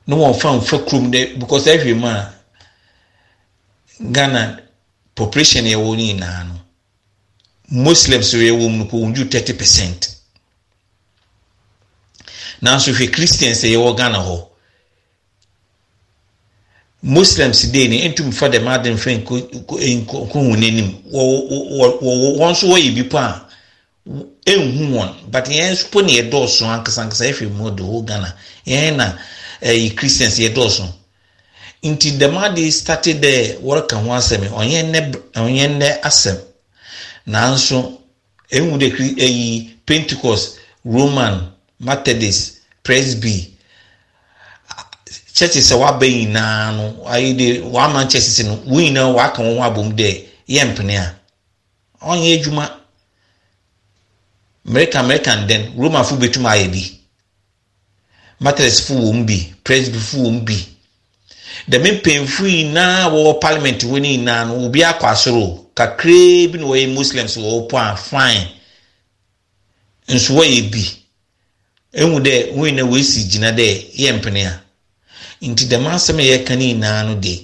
na wɔn fa nfa kurom de because ɛhwɛ mu a ghana population yɛ wɔ nyinaa no muslims yɛ wɔ mu wɔn ju thirty percent nanso hwɛ christians yɛ wɔ ghana hɔ. muslims dee ni ntum fa dɛm adi nfɛ nkohun n'anim wɔn nso wɔyɛ bi pa a ehu wɔn but eh, yɛn nso na yɛ dɔɔso ankasankasa efi mu do o ghana yɛn na ɛyi christians yɛ dɔɔso nti dɛm adi stati dɛ wɔreka ho asɛm ɔnyɛ nnɛ ɔnyɛ nnɛ asɛm nanso ehu de eyi pentecost roman methodist presby. churches sɛ waba nyinaa no ayi de wama churches no wɔn nyinaa waka wɔn ho abom dɛ yɛ mpene a ɔnyɛ adwuma mmerika mmerika ndɛn romafo betuma ayɛ bi matresfo wɔm bi presbifo wɔm bi dɛm mpanyinfo nyinaa wɔwɔ parliament wɔn nyinaa no obi akɔ asoro kakraa bi na wɔyɛ muslims wɔwɔ po a fine nso wɔyɛ bi ehu dɛ wɔn nyinaa wɔsi gyina dɛ yɛ mpene a. nti dɛm asɛm a yɛka ne nyinaa no de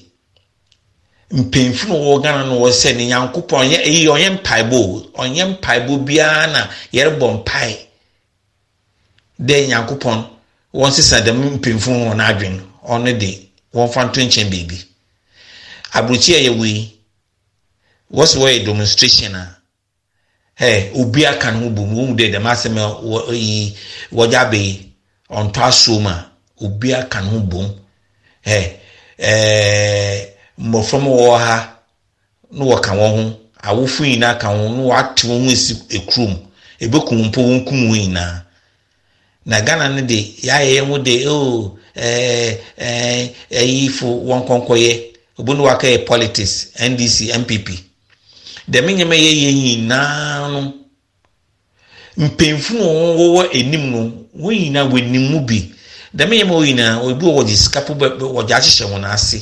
mpanyinfo na wɔwɔ ghana no wɔ sɛ ne nyankopɔn ɔnyɛ eyi ɔnyɛ mpaebɔ ɔnyɛ mpaebɔ biara na yɛrebɔ mpae dɛ nyankopɔn wɔn sisa dɛm mpanyinfo wɔn adwene ɔno de wɔn fa nto nkyɛn beebi aburokyi a yɛwɔ yi wɔsi wɔyɛ demonstration a ɛɛ obi aka ne ho bom wɔn mu dɛ dɛm asɛm a wɔ yi wɔgya abɛyi ɔntɔ asoom a obi aka ne ho bom. mmɔfra mu wɔ ha na wɔka wɔn ho awofo nyinaa ka ho na wɔate wɔn ho esi ekurom ebekum mpo wɔn kum wɔn nyinaa na ghana no de yɛayɛ yɛn ho de oo ɛɛ ɛɛ ɛyifo wɔn kɔnkɔyɛ obi na waka yɛ politics ndc npp dɛm nneɛma yɛ yɛ nyinaa no mpanyinfo na wɔn wɔwɔ anim no wɔn nyinaa wɔ anim mu bi. dɛm yɛn mu wɔ nyinaa obi wɔ wɔde sika po bɛ wɔde ahyehyɛ wɔn ase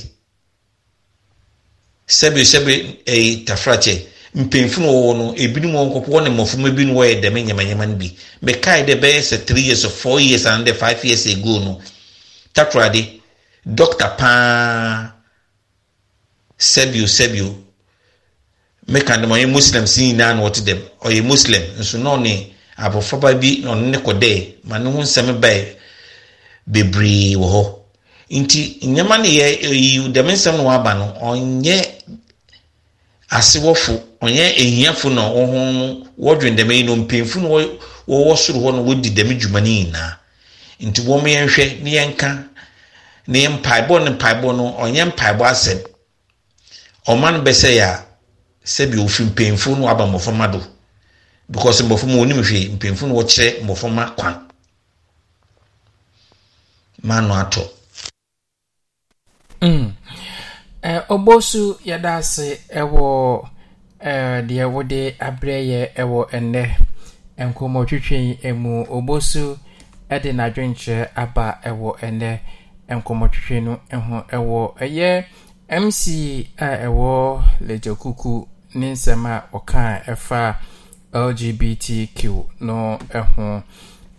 sɛbi sɛbi ɛyi tafrakyɛ mpanyinfo wɔwɔ no ebinom wɔn kɔkɔ wɔn ne mmɔframa bi wɔyɛ dɛm nyamanyama no bi mɛkae dɛ bɛyɛ sɛ three years four years and five years ago no takoradi dɔkta paa sɛbio sɛbio meka dɛm ɔyɛ muslim si nyinaa na wɔte dɛm ɔyɛ muslim nso na ɔne abɔfraba bi na ɔne ne kɔ dɛ ma ne ho nsɛm bae bebree wɔ hɔ nti nneɛma no yɛ eyi dɛm nsɛm no waba no ɔnyɛ asewɔfo ɔnyɛ ehiafo na wɔn wɔdwen dɛm yi no mpanyinfo na wɔwɔ soro hɔ na wɔdi dɛm dwuma no nyinaa nti wɔn yɛn hwɛ ne yɛn ka ne yɛn mpaebɔ ne mpaebɔ no ɔnyɛ mpaebɔ asɛm ɔman bɛsɛ yɛ a sɛbi ofi mpanyinfo no waba mmɔframma do because mmɔframma wɔn nim hwee mpanyinfo no wɔkyerɛ mmɔframma kwan. manu atọ ọgbọsu mm. eh, yɛda ase ɛwɔ eh, deɛ wode abrɛ yɛ ɛwɔ ɛnnɛ nkɔmmɔtwitwi mu ɔgbɔsu de n'adwenkyerɛ aba ɛwɔ ɛnnɛ nkɔmmɔtwitwi no ho ɛwɔ eh, ɛyɛ mc a ɛwɔ lagyakuku ne nsɛm a ɔka ɛfa lgbtq no ho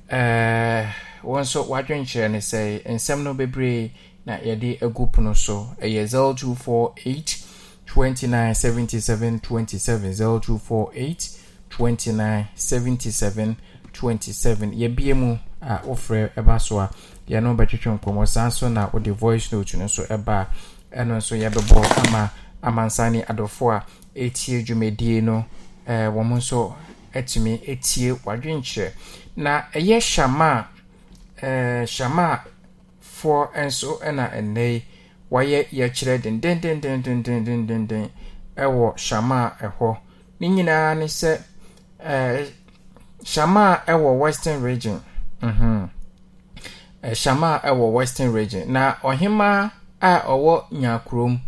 ɛɛ. wɔn nso wɔadwenkyerɛ ne sɛ nsɛm no bebree na yɛde agu pono so ɛyɛ 0248 29 77 27 0248 29 77 27 yɛbie mu a wofrɛ ɛba so a yɛno bɛtwetwe nkɔmmɔ saa nso na wɔde voice note no nso ɛba a ɛno nso yɛbɛbɔ ama amansane adɔfoɔ a ɛtie dwumadie no ɛɛ wɔn nso ɛtumi ɛtie wɔadwenkyerɛ na ɛyɛ hyama a hyamafoɔ eh, nso na ɛnnɛ yi wɔayɛ yɛkyerɛ dendendendendendenden wɔ hyamaa ɛhɔ ne nyinaa ne sɛ hyamaa ɛwɔ western region hyamaa mhm. eh, ɛwɔ western region na ɔhemaa a ɔwɔ nyakurom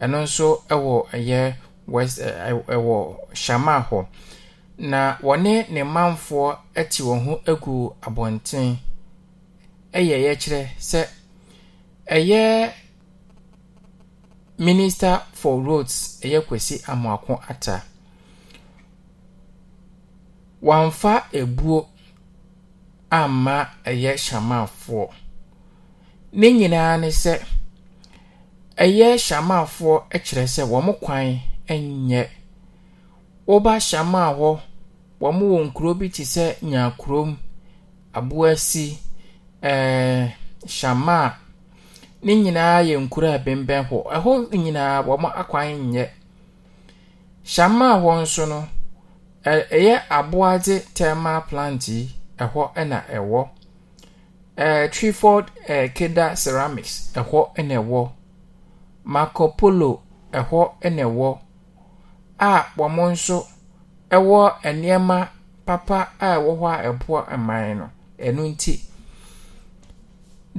ɛno nso wɔ ɛyɛ west wɔ hyamaa hɔ na wɔne ne manfoɔ te wɔn ho agu abɔnten ɛyɛ yɛkyerɛ sɛ ɛyɛ minister for roads ɛyɛ kwesi amoako ata wamfa ebuo amma ɛyɛ shamanfoɔ ne nyinaa ne sɛ ɛyɛ shamanfoɔ ɛkyerɛ sɛ wɔn kwan ɛnyɛ wɔba shaman hɔ wɔn wɔ nkuro bi te sɛ nyakurom aboasi. ɛɛ eh, shamaa ne nyinaa yɛ nkuro a bɛnbɛn hɔ ɛhɔ nyinaa wɔn akwan nyɛ shamaa hɔ nso no ɛyɛ aboagye thermal plant yi ɛhɔ na ɛwɔ ɛɛ trefold ɛɛ keda ceramics ɛhɔ na ɛwɔ marco polo ɛhɔ na ɛwɔ a wɔn nso ɛwɔ nneɛma papa a ɛwɔ hɔ a ɛboa mman no ɛno nti.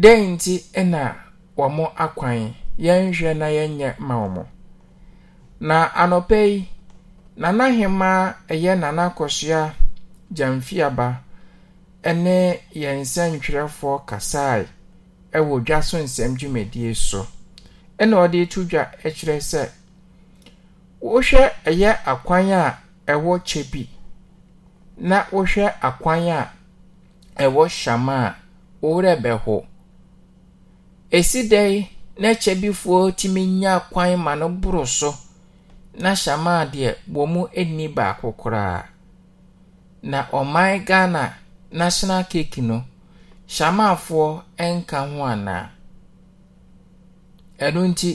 dɛn nti na wɔn akwan yɛnhwɛ na yɛnyɛ ma wɔn na anɔpɛ yi nana hemaa ɛyɛ nana akɔsoa gyamfiaba ɛne yɛn nsɛntwerɛfoɔ kasae ɛwɔ dwa so nsɛm dwumadie so ɛna ɔde to dwa ɛkyerɛ sɛ wohwɛ ɛyɛ akwan a ɛwɔ kyɛ bi na wohwɛ akwan a ɛwɔ hyama a wɔwerɛ bɛho. esi dɛn na kyɛbifoɔ tumi nya kwan ma no na hyamaa deɛ wɔ mu baako koraa na ɔman ghana national cake no hyamaafoɔ nka ho anaa ɛno nti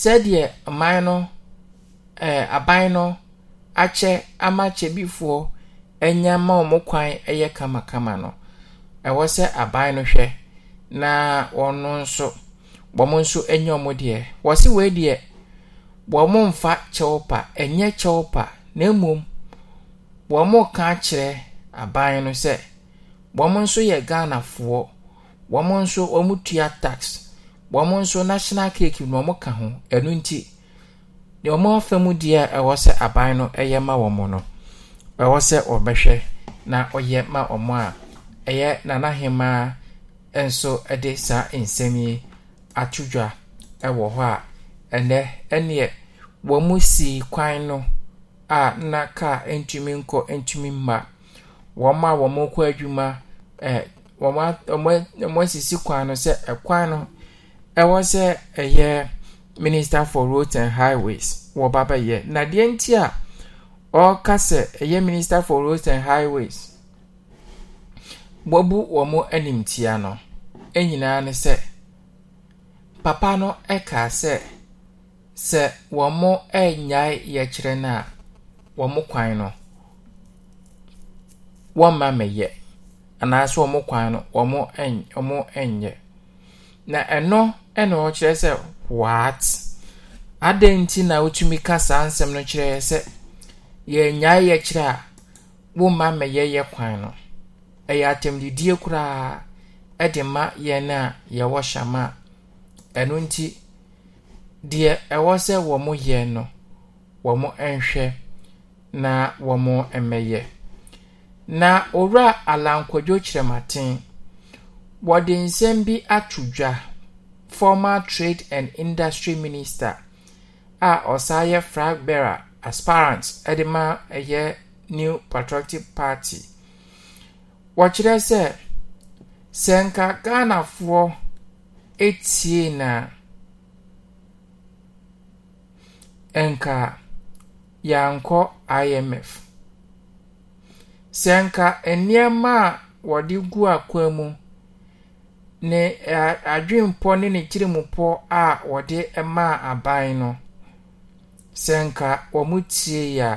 sɛdeɛ man no aban no akyɛ ama kyɛbifoɔ anya ma ɔ kwan yɛ kamakama no ɛwɔ sɛ aban no hwɛ na ɔno nso wɔn nso nyɛ wɔn deɛ wɔsi wei deɛ wɔn mfa kyɛw pa nyɛ kyɛw pa na mmom wɔn ka kyerɛ aban no sɛ wɔn nso yɛ foɔ wɔn nso wɔn tua tax wɔn nso national cake na wɔn ka ho ɛnu nti deɛ wɔn afa mu deɛ ɛwɔ sɛ aban no ɛyɛ ma wɔn no ɛwɔ sɛ ɔbɛhwɛ na ɔyɛ ma wɔn a ɛyɛ nanahemaa. nso de saa nsɛm yi ato dwa wɔ hɔ a ɛnɛ ɛneɛ wɔn mu si kwan no a na kaa ntumi nkɔ ntumi mma wɔn a wɔn kɔ adwuma ɛɛ wɔn a wɔn wɔn asisi kwan no sɛ ɛkwan no ɛwɔ sɛ ɛyɛ minister for roads and highways wɔba bɛyɛ na deɛ nti a ɔreka sɛ ɛyɛ minister for roads and highways wɔbu wɔn anim tia no. E nyinaa ne sɛ papa no kaa sɛ sɛ wɔn mo nnyae yɛkyerɛ no a wɔn kwan no wɔn mma mɛyɛ anaasɛ wɔn kwan no wɔn mo ɛn wɔn mo nyɛ na ɛno na ɔkyerɛ sɛ what adan nti na wotumi ka saa nsɛm no kyerɛ sɛ yɛnyae yɛkyerɛ a wɔn mma mɛyɛ yɛ kwan no ɛyɛ atɛmdidie koraa de ma yɛn a yɛwɔ hyɛma a ɛno nti deɛ ɛwɔ sɛ wɔn mo no wɔn nhwɛ na wɔn mo mmɛyɛ na owura alankodwo kyerɛmaten wɔde nsɛm bi ato dwa former trade and industry minister a ɔsan yɛ flag bearer aspirant de ma ɛyɛ new patriotic party wɔkyerɛ sɛ sɛ nka ghanafoɔ etie na nka yankɔ imf sɛ nka nneɛma a wɔde gu akwan mu ne adwempɔ ne ne kyirimupɔ a wɔde maa aban no sɛ nka wɔn tie ya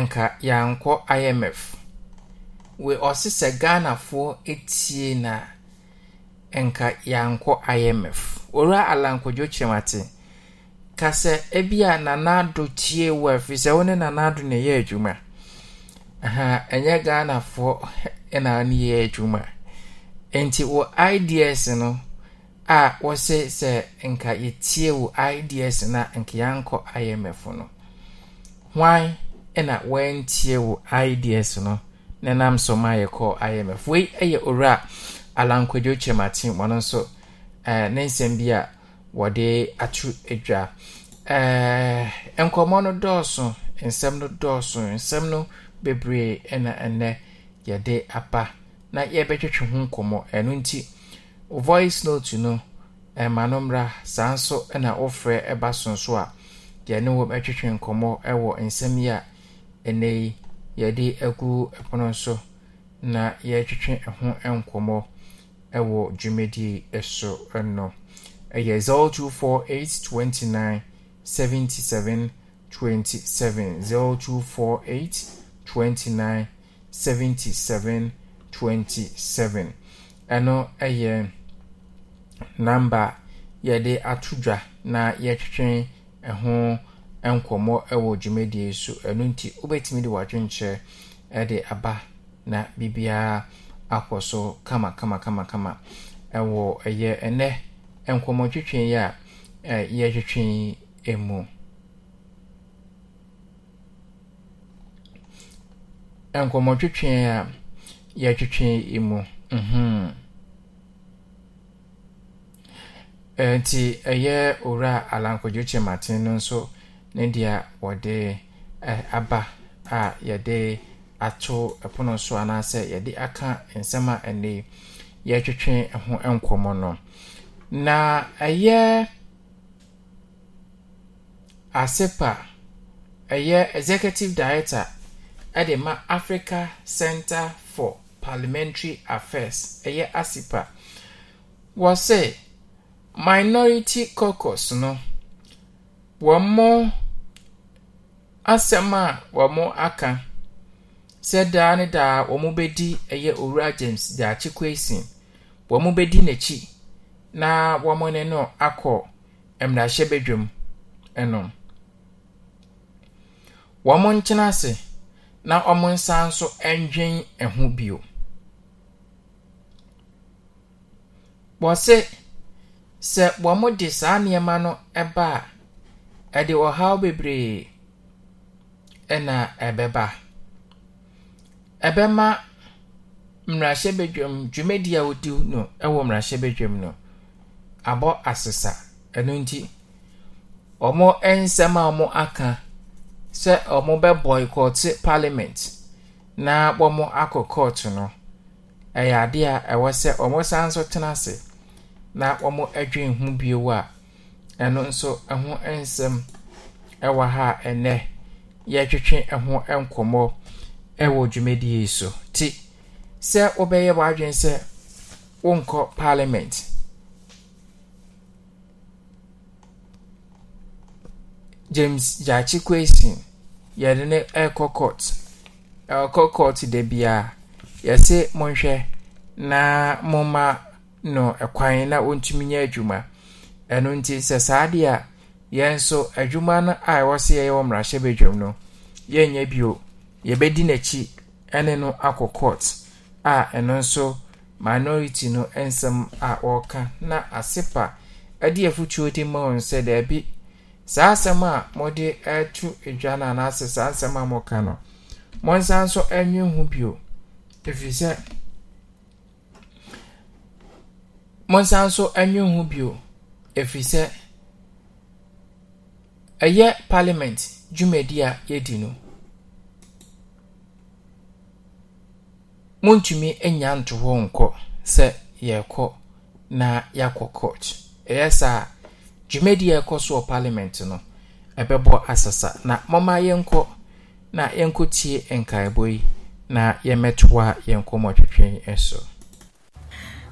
nka yankɔ imf. wei ɔse sɛ ghanafoɔ tie no a ɛnka yɛankɔ imf ɔwura alankɔdwo kyerɛm ate ka sɛ ebia nanaado tie wɔ afiri sɛ wo ne nanaado ne yɛ adwuma ɛnyɛ ghanafoɔ <laughs> na ne yɛ adwuma ɛnti wɔ ids no a wɔse sɛ nka yɛtie wɔ ids na a nka yɛankɔ imf no hwan na wɔantie wɔ ids no nam so ma yɛkɔ imf wei yɛ owura alankwadwo kyerɛmaten wɔno nso ne nsɛm bi a wɔde ato adwa nkɔmmɔ no dɔɔso nsɛm no dɔɔso nsɛm no bebree na ɛnɛ yɛde aba na yɛbɛtwetwe ho nkɔmmɔ ɛno nti voice note no ɛma no mmra saa nso na wofrɛ ba sonso a yɛne wɔ bɛtwetwe nkɔmmɔ wɔ nsɛm yi a ɛnɛ yi yɛde agu ɛpono so na yɛretwetwe ho nkɔmmɔ ɛwɔ dwumadie so no ɛyɛ 024829 77 27 0248 29 77 27 ɛno ɛyɛ namba yɛde ato dwa na yɛtwetwe ho nkɔmmɔ nkɔmmɔ wɔ dwumadie so ɛno nti wobɛtumi de w'adwenkyerɛ de aba na biribiaa akɔ so kamakamakama ɛwɔ ɛyɛ ɛnɛ nkɔmmɔ twitwen yi a yɛtwitwen emu. nkɔmmɔ twitwen a yɛtwitwen emu mhm. nti ɛyɛ owura alankɔdwokyɛ maten no nso ne deɛ wɔde aba a yɛde ato pono so anaasɛ yɛde aka nsɛm a ɛnɛ yɛtwetwe ho nkɔmmɔ no na ɛyɛ asepa ɛyɛ executive director ɛde ma africa center for parliamentary affairs ɛyɛ asepa wɔsɛ minority caucus no wɔn mo. asɛm a wɔn aka sɛ daa ne daa wɔn bɛdi ɛyɛ owura james daakye kwesin wɔn bɛdi n'akyi na wɔn ne no akɔ mmarahyɛbadwam ɛnom wɔn nkyɛn ase na wɔn nsa nso ndwen ɛho bio wɔsɛ sɛ wɔn de saa nneɛma no ɛba a ɛde ɔhaw bebree. na ɛbɛba ɛbɛma mmerahyɛbadwam dwumadi a wɔdi no wɔ mmarahyɛbadwam no abɔ asesa ɛno nti ɔmo nsɛm a ɔmo aka sɛ ɔmo bɛ boycɔte parliament na wɔmo akɔ court no ɛyɛ adeɛ a ɛwɔ sɛ ɔmo san so tena ase na wɔmo adwen ho bio a ɛno nso ɛho nsɛm ɛwɔ ha ɛnɛ. yɛtwetwe ho nkɔmmɔ wɔ dwumadie yi so ti sɛ wobɛyɛ w'adwene sɛ wonkɔ parliament james gyaakye kwesin yɛde ne ɛrekɔ court ɛrekɔ court da biara yɛse monhwɛ na momma no ɛkwan na wɔntumi nyɛ adwuma ɛno nti sɛ saa adeɛ a yɛn nso adwuma no a ɛwɔ sɛ yɛyɛ wɔ mmarahyɛbadwam no yɛnyɛ bio yɛbɛdi n'akyi ne no akɔ court a ɛno nso minority no nsɛm a wɔreka na asepa de afutuo de ma wɔn sɛ daabi saa asɛm a wɔde reto adwa no anaasɛ saa asɛm a wɔka no wɔnsan nso nwe ho bio ɛfiri sɛ wɔnsan nso nwe ho bio ɛfiri sɛ ɛyɛ parliament dwumadi a yɛdi no montumi anya nto hɔ nkɔ sɛ yɛrekɔ na yɛakɔ court ɛyɛ saa dwumadi a ɛkɔ so wɔ parliament no ɛbɛbɔ asasa na mɔma yɛnkɔ na yɛnkɔ tie nkaebɔ yi na yɛmmɛtoa yɛn nkɔmmɔ twetwe so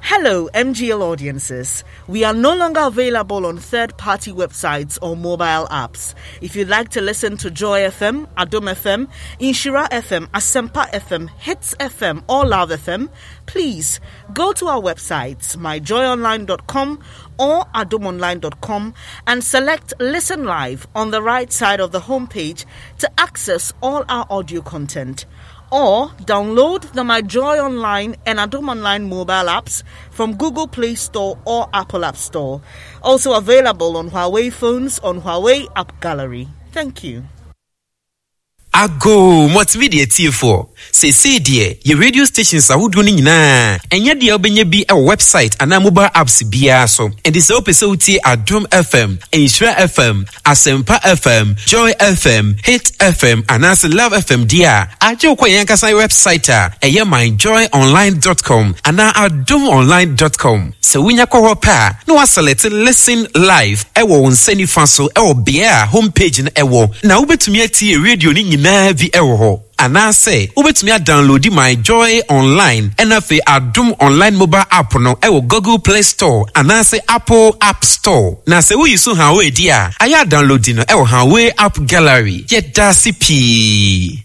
Hello, MGL audiences. We are no longer available on third party websites or mobile apps. If you'd like to listen to Joy FM, Adom FM, Inshira FM, Asempa FM, Hits FM, or Love FM, please go to our websites, myjoyonline.com or adomonline.com, and select Listen Live on the right side of the homepage to access all our audio content or download the My Joy Online and Adom Online mobile apps from Google Play Store or Apple App Store. Also available on Huawei phones on Huawei App Gallery. Thank you. ago mɔtumi deɛ tiefoɔ seesei deɛ yɛ radio stations ahodoɔ ni nyinaa ɛnyɛ deɛ wobɛnya bi wɔ website anaa mobile apps biara so ɛnti sɛ wopɛ sɛ wotie adom fm nhyira fm asɛmpa fm joy fm hit fm anaasɛ love fm deɛ a agye wokɔ yɛn ankasa website a ɛyɛ myjoyonline.com anaa adomonline.com sɛ wonya kɔ hɔ pɛ a na woasɛlɛte listen live ɛwɔ wo nsa nifa so ɛwɔ beɛ a homepage no ɛwɔ na wobɛtumi atie radio ni nyinaa nyinaa bi wɔ hɔ anaasɛ wobɛtumi adownloadi my joy online ɛna afei adom online mobile app no ɛwɔ google play store anaasɛ apple app store na sɛ woyi so hawee di a ayɛ adownloadi no ɛwɔ hawee app gallery yɛda ase pii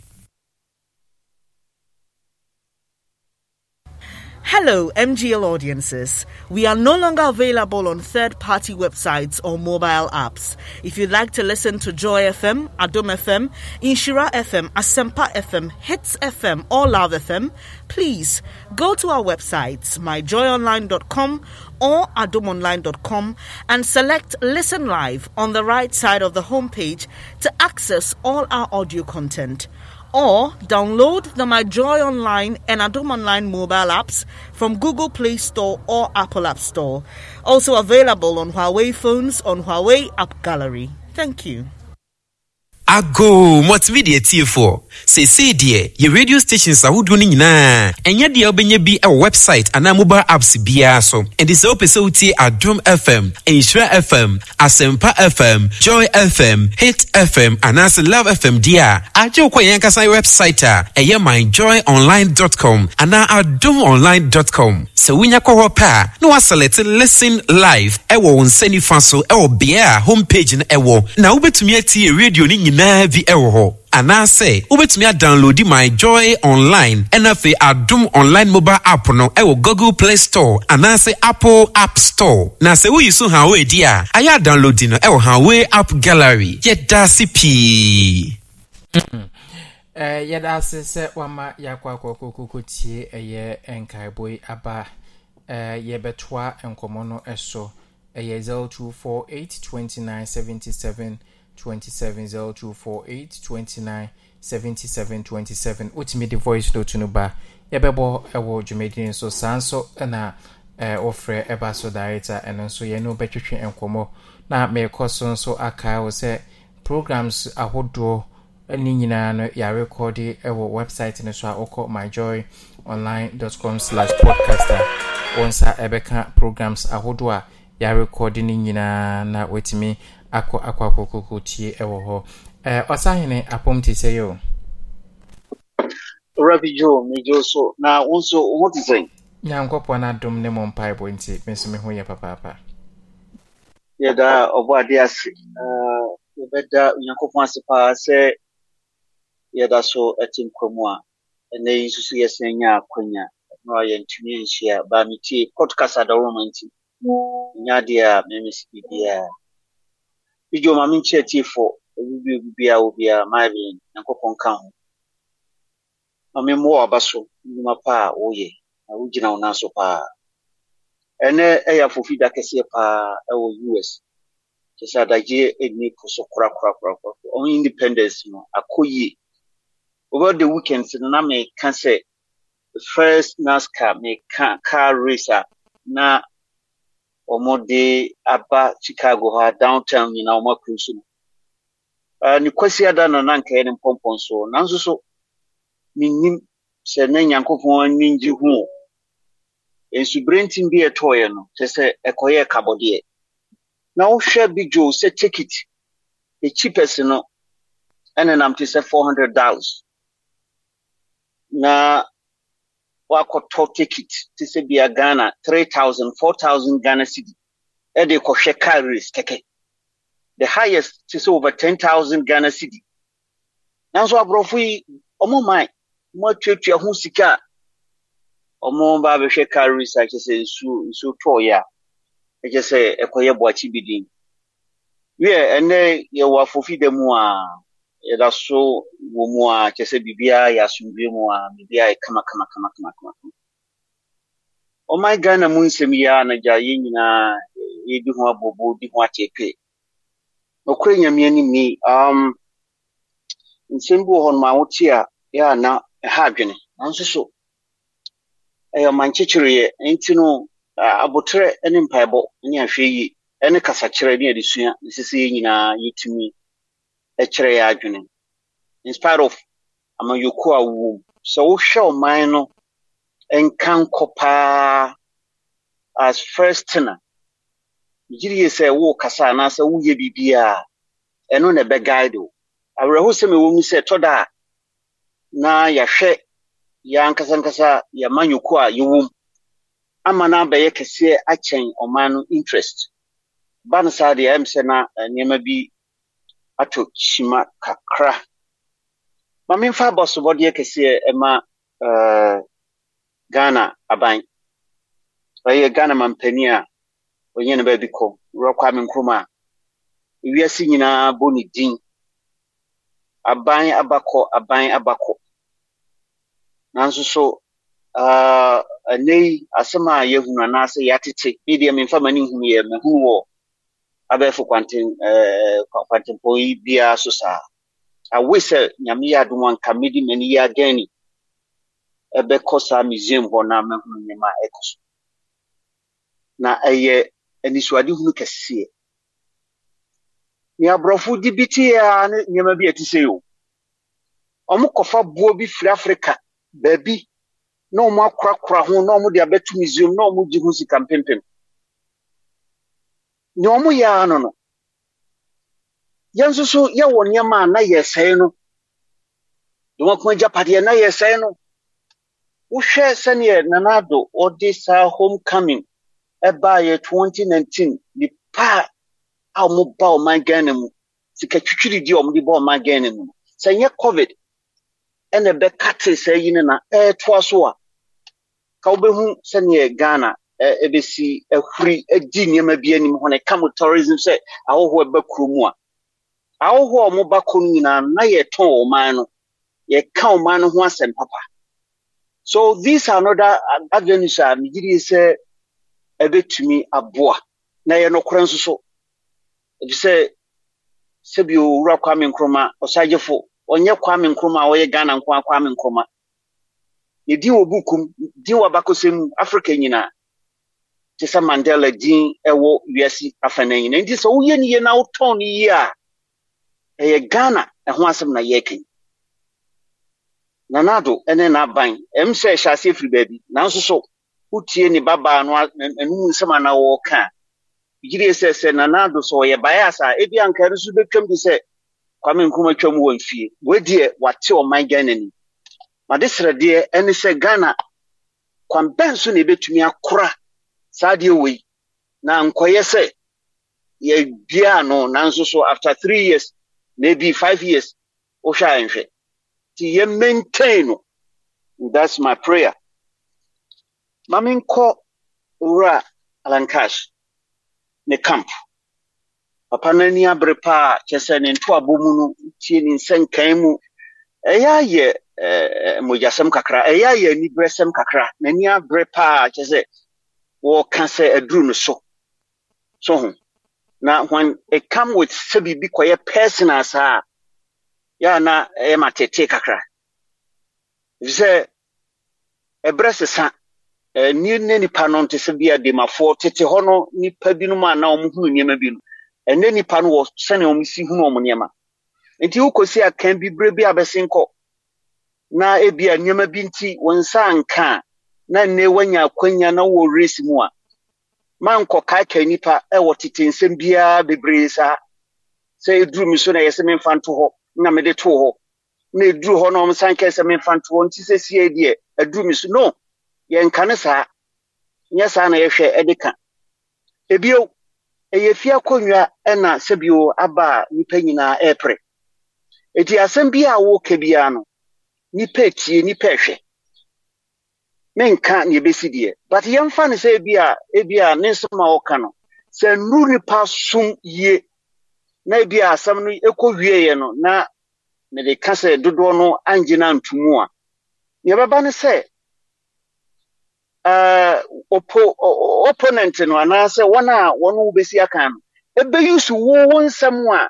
Hello, MGL audiences. We are no longer available on third party websites or mobile apps. If you'd like to listen to Joy FM, Adom FM, Inshira FM, Asempa FM, Hits FM, or Love FM, please go to our websites, myjoyonline.com or adomonline.com, and select Listen Live on the right side of the homepage to access all our audio content or download the My Joy Online and Adum Online mobile apps from Google Play Store or Apple App Store. Also available on Huawei phones on Huawei App Gallery. Thank you. Ago, what's video for? seesei deɛ yɛ radio stations ahodoɔ no nyinaa ɛnyɛ deɛ wobɛnya bi wɔ website anaa mobile apps biara so ɛnti sɛ wopɛ sɛ wotie adom fm nhyira fm asɛmpa fm joy fm hit fm anaasɛ love fm deɛ a agye wokɔ yɛn ankasa website a ɛyɛ myjoyonline.com anaa adomonline.com sɛ wonya kɔ hɔ pɛ a na woasɛlɛte listen live ɛwɔ wo nsa nifa so ɛwɔ bea a homepage no ɛwɔ na wobɛtumi atie radio no nyinaa bi ɛwɔ hɔ anaasɛ wobɛtumi adownloadi my joy online ɛna afei adom online mobile app no ɛwɔ google play store anaasɛ apple app store na sɛ woyi so hawway di a ayɛ adownloadi no ɛwɔ hawway app gallery yɛda se pii eh, yɛda ase sɛ wama yɛakɔ akɔkɔkɔkɔ tie ɛyɛ nkaebɔ yi aba eh, yɛbɛtoa nkɔmmɔ no so ɛyɛ 0248 2977 27028 29 77 27 wotumi de voice note no ba yɛbɛbɔ ɛwɔ dwumadini so saa nso na ɛɛ eh, wɔfrɛ ɛba so director ɛno nso yɛn no bɛtwitwe na mɛkɔ so nso aka wɔ sɛ programs ahodoɔ ne nyinaa no yɛarekɔde ɛwɔ website no so a wɔkɔ com slash podcaster a wɔn nsa ɛbɛka programs ahodoɔ a yɛarekɔde ne nyinaa na wɔtumi akɔ akɔ akɔkɔkɔ tie ɛwɔ hɔ ɛɛ ɔsahene apɔm te sɛ yi o. rabi jo mejo so na wo nso wo te sɛn. na adom ne mo mpaebɔ nti me nso me ho yɛ papaapa. yɛda ɔbɔ ade ase yɛbɛda onyankopɔn ase paa sɛ yɛda so te nkwamu a ɛnɛ yi nso so yɛsan nya akwanya ɛno a yɛntumi nhyia baa metie podcast adawoma nti ɛnya adeɛ a memesi biribiaa bigye maame nkyerɛkyerɛfo obibi obibi a obia marian nyankopɔn ka ho maame mmoa aba so nnwuma pa a woyɛ na wogyina wo nan so paa e ya ɛyɛ afofi da kɛseɛ paa e ɛwɔ us kyɛ sɛ adagyeɛ ɛnni e po so kura on independence no akɔ over the weekend na na meka sɛ first nascar meka car racer ah, na wɔde aba chicago hɔ a downtown nyinaa wɔn akuru so no ne kwasi ada na na nkae ne mpɔmpɔn so nanso so menim sɛ na nyankopɔn ani gye ho o nsuberentim bi ɛtɔɔeɛ no kyerɛ sɛ ɛkɔyɛ kabɔdeɛ na wohwɛ bi dwo sɛ ticket the cheapest no ɛnenam te sɛ four hundred dollars na wakɔtɔ ticket te sɛ bia ghana three thousand four thousand ghana cedi ɛde kɔhwɛ car race kɛkɛ the highest te sɛ over ten thousand ghana cedi nanso aborɔfo yi ɔmo man ɔmo atuatua ho sika a ɔmo ba abɛhwɛ car race a kyɛ sɛ nsuo nsuo tɔɔyɛ a ɛkyɛ sɛ ɛkɔyɛ boakye bi den wiɛ ɛnɛ yɛwɔ afofi da mu yɛda so wɔ mu a kyɛ sɛ biribiara yɛ asomdwe mu a biribiara yɛ kama kama kama kama kama ɔman oh ghana mu nsɛm yi a nagya yɛn nyinaa yɛdi ho abobo di ho akyɛpe ɔkora nyame anim ni um, nsɛm bi wɔ hɔ noma wote a yɛ a na ɛha adwene nanso so ɛyɛ ɔman kyekyereyɛ nti no abotrɛ ne mpaebɔ ne ahwɛ yie ɛne kasakyerɛ ne adesua ne sɛ sɛ yɛn nyinaa yɛtumi ɛkyerɛ yɛ adwene in spite of amanyoku a wɔwɔ mu sɛ wohwɛ ɔman no nka nkɔ paa as first tena gyiri yɛ sɛ kasa anaasɛ woyɛ a ɛno na ɛbɛguide o awerɛhosɛm ɛwɔ mu sɛ tɔ da a na yɛahwɛ ya ankasankasa yɛma nyoko a yɛwɔ mu ama no abɛyɛ kɛseɛ akyɛn ɔman no interest ba no saa deɛ ɛm sɛ na eh, nneɛma bi ato shima kakra ma memfa abɔsobɔdeɛ kɛseɛ ɛma eh, ghana aban ɔyɛ ghana mampani a ɔnyɛ no baabi kɔ wurɔkɔ me nkrom a ewiase nyinaa bɔ ne din aban abakɔ aban abakɔ nanso so ah, ɛnɛ uh, yi asɛm a yɛahunu anaasɛ yɛatete ne deɛ memfa ma ne nhunu yɛ mahunu wɔ abɛɛfo kwantempɔn eh, yi biara so saa awe eh, sɛ nyame yɛ adom anka mede m'ani yɛ adan museum hɔ na mahunu nneɛma ɛkɔ so na ɛyɛ anisoadehunu kɛseɛ nea aborɔfo de bi teɛ a ne nneɛma bi ɛte sɛ o kɔfa boɔ bi firi afrika baabi na akorakora ho na de nea ɔmo yɛ ano no yɛn nso so yɛwɔ nneɛma a na yɛ sɛe no domako agyapadeɛ na yɛ sɛe no wohwɛ sɛneɛ nanado ɔde saa home coming ɛbaayɛ 2019 nipa a ɔmo ba ɔman ghana mu sika twitwiridie a ɔmo de ba ɔman ghana mu sɛ nyɛ covid ɛna ɛbɛka te saa yi no na ɛɛtoa so a ka wobɛhu sɛneɛ ghana ɛbɛsi eh, eh, ahuri eh, agyi nneɛma bi anim hɔ no ɛka mo tourism sɛ ahɔhoɔ ɛba kuro mu a ahɔhoɔ a ɔmoba kɔ no nyinaa na yɛtɔn ɔman no yɛka ɔman no ho asɛm papa so these are another avenues a megye sɛ ɛbɛtumi aboa na ɛyɛ nokorɛ nso so ɛfisɛ sɛbi owura kwame nkroma ɔsagyefo ɔnyɛ kwame nkroma a ɔyɛ ghana nko a kwame nkroma yɛdin wɔ bukum din wɔ abakɔsɛm africa nyinaa te sɛ mandela din ɛwɔ wiase afana nyina nti sɛ woyɛ no yie na wotɔn no yie a ɛyɛ ghana ɛho asɛm na yɛreka nanado ɛne n'aban ɛm sɛ ɛhyɛ aseɛ firi baabi nanso so wotie ne babaa no anom nsɛm ana wɔɔka a yire sɛ sɛ nanado sɛ ɔyɛ bae asa a ebi anka no so bɛtwam de sɛ kwame nkrumah twam wɔ mfie wadeɛ wate ɔman ghana ni made srɛdeɛ ɛne sɛ ghana kwan bɛn so na ebɛtumi akora saa deɛ wei na nkɔyɛ sɛ yɛduaa no nanso so after three years maybe five years wohwɛ a nhwɛ nti yɛ maintain no that's my prayer ma menkɔ wura alankash ne camp papa no ani abere paa kyɛ sɛ ne ntoabɔ mu no tie ne nsɛnkan mu ɛyɛ ayɛ eh, eh, mogyasɛm kakra ɛyɛ ayɛ aniberɛsɛm kakra n'ani abere paa kyɛ sɛ wɔreka sɛ aduru no so so ho na when it come with sɛ biribi kɔyɛ personal saa yɛa na ɛyɛ ma tetee kakra efisɛ ɛberɛ sesa ɛni ne nipa no nte sɛ bia demafoɔ tete hɔ no nipa binom a na wɔn hunu nneɛma bi no ɛne nipa no wɔ sɛnea wɔn si hunu ɔmo nneɛma nti wokɔsi akan bi bere bi abɛsi nkɔ na ebia nneɛma bi nti wɔn nsa nka a na nne wanya akwanya na wɔ race mu a ma nkɔka atwa nipa ɛwɔ tete nsɛm biara bebree saa sɛ ɛduru me so na yɛsɛ sɛ memfa nto hɔ na mede too hɔ na ɛduru hɔ na ɔmsan kɛ sɛ memfa nto hɔ nti sɛ sie deɛ ɛduru me so no yɛnka ne saa nyɛ saa na yɛhwɛ ɛde ka ebio ɛyɛ fie akonnwa ɛna sɛbio aba a nipa nyinaa ɛɛpere eti asɛm bi a wɔreka bia no Nipa etie nipa ɛhwɛ menka ne yɛbɛsi deɛ but yɛmfa no sɛ ebia ebia ne nsɛm a ɔka no sɛ nnuru nipa sum yie na ebia asɛm no ekɔ wieɛ no na de ka sɛ dodoɔ no angyina ntumu a nea ɛbɛba ne sɛ ɔpo eh, opponent no anaasɛ wɔn a wɔn wobɛsi aka no ebeyi so wo wo nsɛm a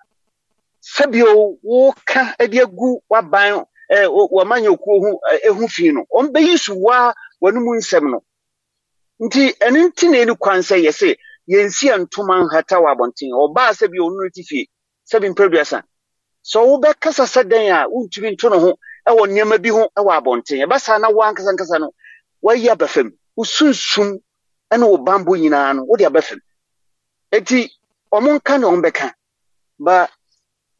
sɛbio ka de agu waban ɛɛ eh, wɔmanya okuo ho ehu fi no wɔn bɛyi so waa. wɔne mu nsɛm no nti ɛno nti na ɛni kwan sɛ yɛse yɛnsi ntoma nhata wɔ abɔnten ɔbaa sɛ bi ɔno ti fie sɛ bi mpɛduasa sɛ wobɛkasa sɛ dɛn a wontumi nto ne ho ɛwɔ nneɛma bi ho ɛwɔ abɔnten ɛbɛsa na woankasankasa no wayi abɛfam wo sunsum ɛne wo bambɔ nyinaa no wode abɛfam eti ɔmo nka na ɔmo bɛka ba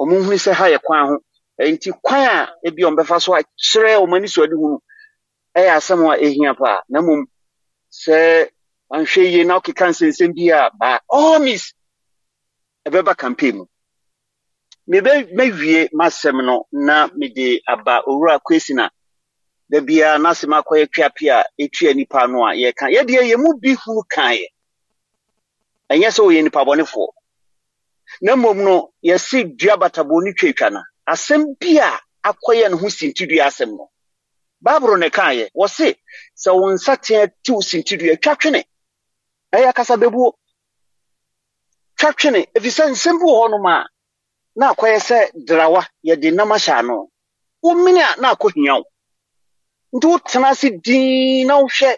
ɔmo nhuni sɛ ha yɛ kwan ho nti kwan a ebi ɔmo bɛfa so akyerɛ ɔmo ani so adi hu no ɛyɛ asɛm a ehia paa na mmom sɛ anhwɛ yie na ɔkeka nsensɛm bi a by all means ɛbɛba campaign mu mebe mewie m'asɛm no na mede aba owura kwesi na dabiara n'asɛm akɔyɛ tweape a etua nipa no a yɛka yɛdeɛ yɛn mu bi huru kan yɛ ɛnyɛ sɛ ɔyɛ nipa bɔnefoɔ na mmom no yɛsi dua batabɔ ne twetwa na asɛm bi a akɔyɛ ne ho sintidua asɛm no baabul ne kaayɛ wɔse sɛ wo nsateɛ tiw sintidua twa twene ɛyɛ akasa bɛbuo twa twene efisɛ nsɛm bi wɔ nom a na akɔyɛ sɛ drawa yɛde nam ahyɛ ano womene a na akɔ hia wo nti wotena ase dinn na wohwɛ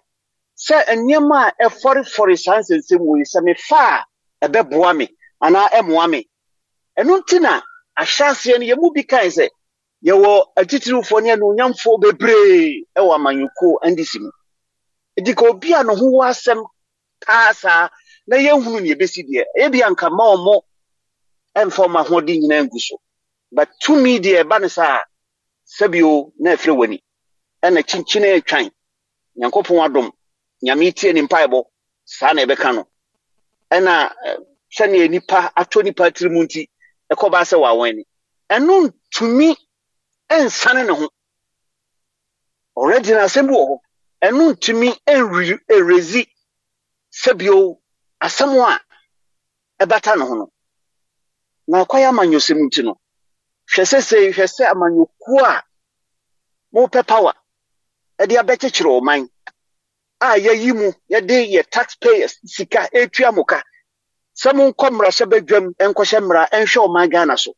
sɛ nneɛma a ɛfɔrefɔre saa nsɛnsɛm wɔ yi sɛ mefa a ɛbɛboa me anaa ɛmoa me ɛno nti na ahyɛ aseɛ no yɛ mu bi kae sɛ yɛwɔ atitirifoɔ ne anuonyamfoɔ bebree wɔ amanyɔkuo ndc mu edika ka obi a ne ho wɔ asɛm taa saa na yɛhunu ne yɛbɛsi deɛ ɛyɛ bi anka ma ɔmo ɛmfa ɔmo ahoɔden nyinaa ngu so but tumi deɛ ɛba ne saa sɛbio na ɛfiri w'ani ɛna kyinkyini atwan nyankopɔn adom nyame tie ne mpaebɔ saa na ɛbɛka no ɛna eh, sɛnea nipa atɔ nipa tiri mu nti ɛkɔba sɛ wɔawɛn ni ɛno ntumi nsane ne ho already na asɛm bi wɔ hɔ ɛno ntumi ɛrezi sɛbio asɛm a ɛbata ne ho no na akɔyɛ amanyɔsɛm nti no hwɛ sɛ sɛ hwɛ sɛ amanyɔkuo a mopɛ power ɛde abɛkyekyere ɔman a yɛyi mu yɛde yɛ taxpayers sika etua mo ka sɛ mo nkɔ mmarahyɛ badwam nkɔhyɛ mmara nhwɛ ɔman ghana so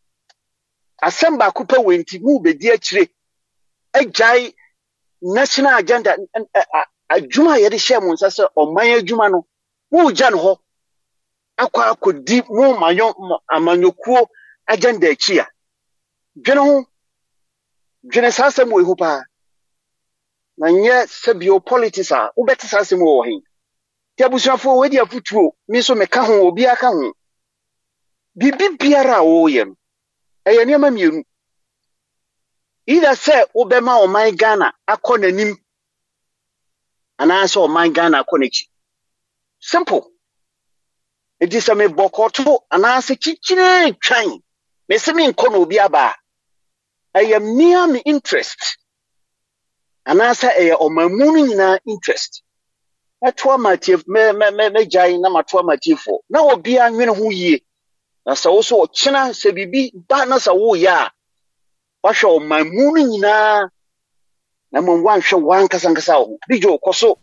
asɛm baako pɛ wɔ nti mu bɛdi akyire agyae national agenda adwuma a yɛde hyɛ mo nsa sɛ ɔman adwuma no moogya no hɔ akɔ akɔdi mo amanyɔkuo agenda akyi a dwene ho dwene saa asɛm wɔ ehu paa na nyɛ sɛbio politics a wobɛte saa asɛm wɔ he nti abusuafoɔ wɔadi afotuo me nso meka ho obiara ka ho biribi biara a wɔreyɛ no ɛyɛ nneɛma mmienu either sɛ wobɛma ɔman ghana akɔ n'anim anaasɛ ɔman ghana akɔ n'akyi simple nti sɛ mebɔkɔto anaasɛ kyikyire twan mese menkɔ na obi aba a ɛyɛ mmea me interest anaasɛ ɛyɛ ɔman mu no nyinaa interest mɛtoa matiefoɔ na matoa matiefoɔ na obiara nwene ho yie na sɛ wo so ɔkyena sɛ biribi ba na sɛ woyɛ a woahwɛ ɔman mu no nyinaa na mmom woanhwɛ woankasankasa wo ho bigye wokɔ so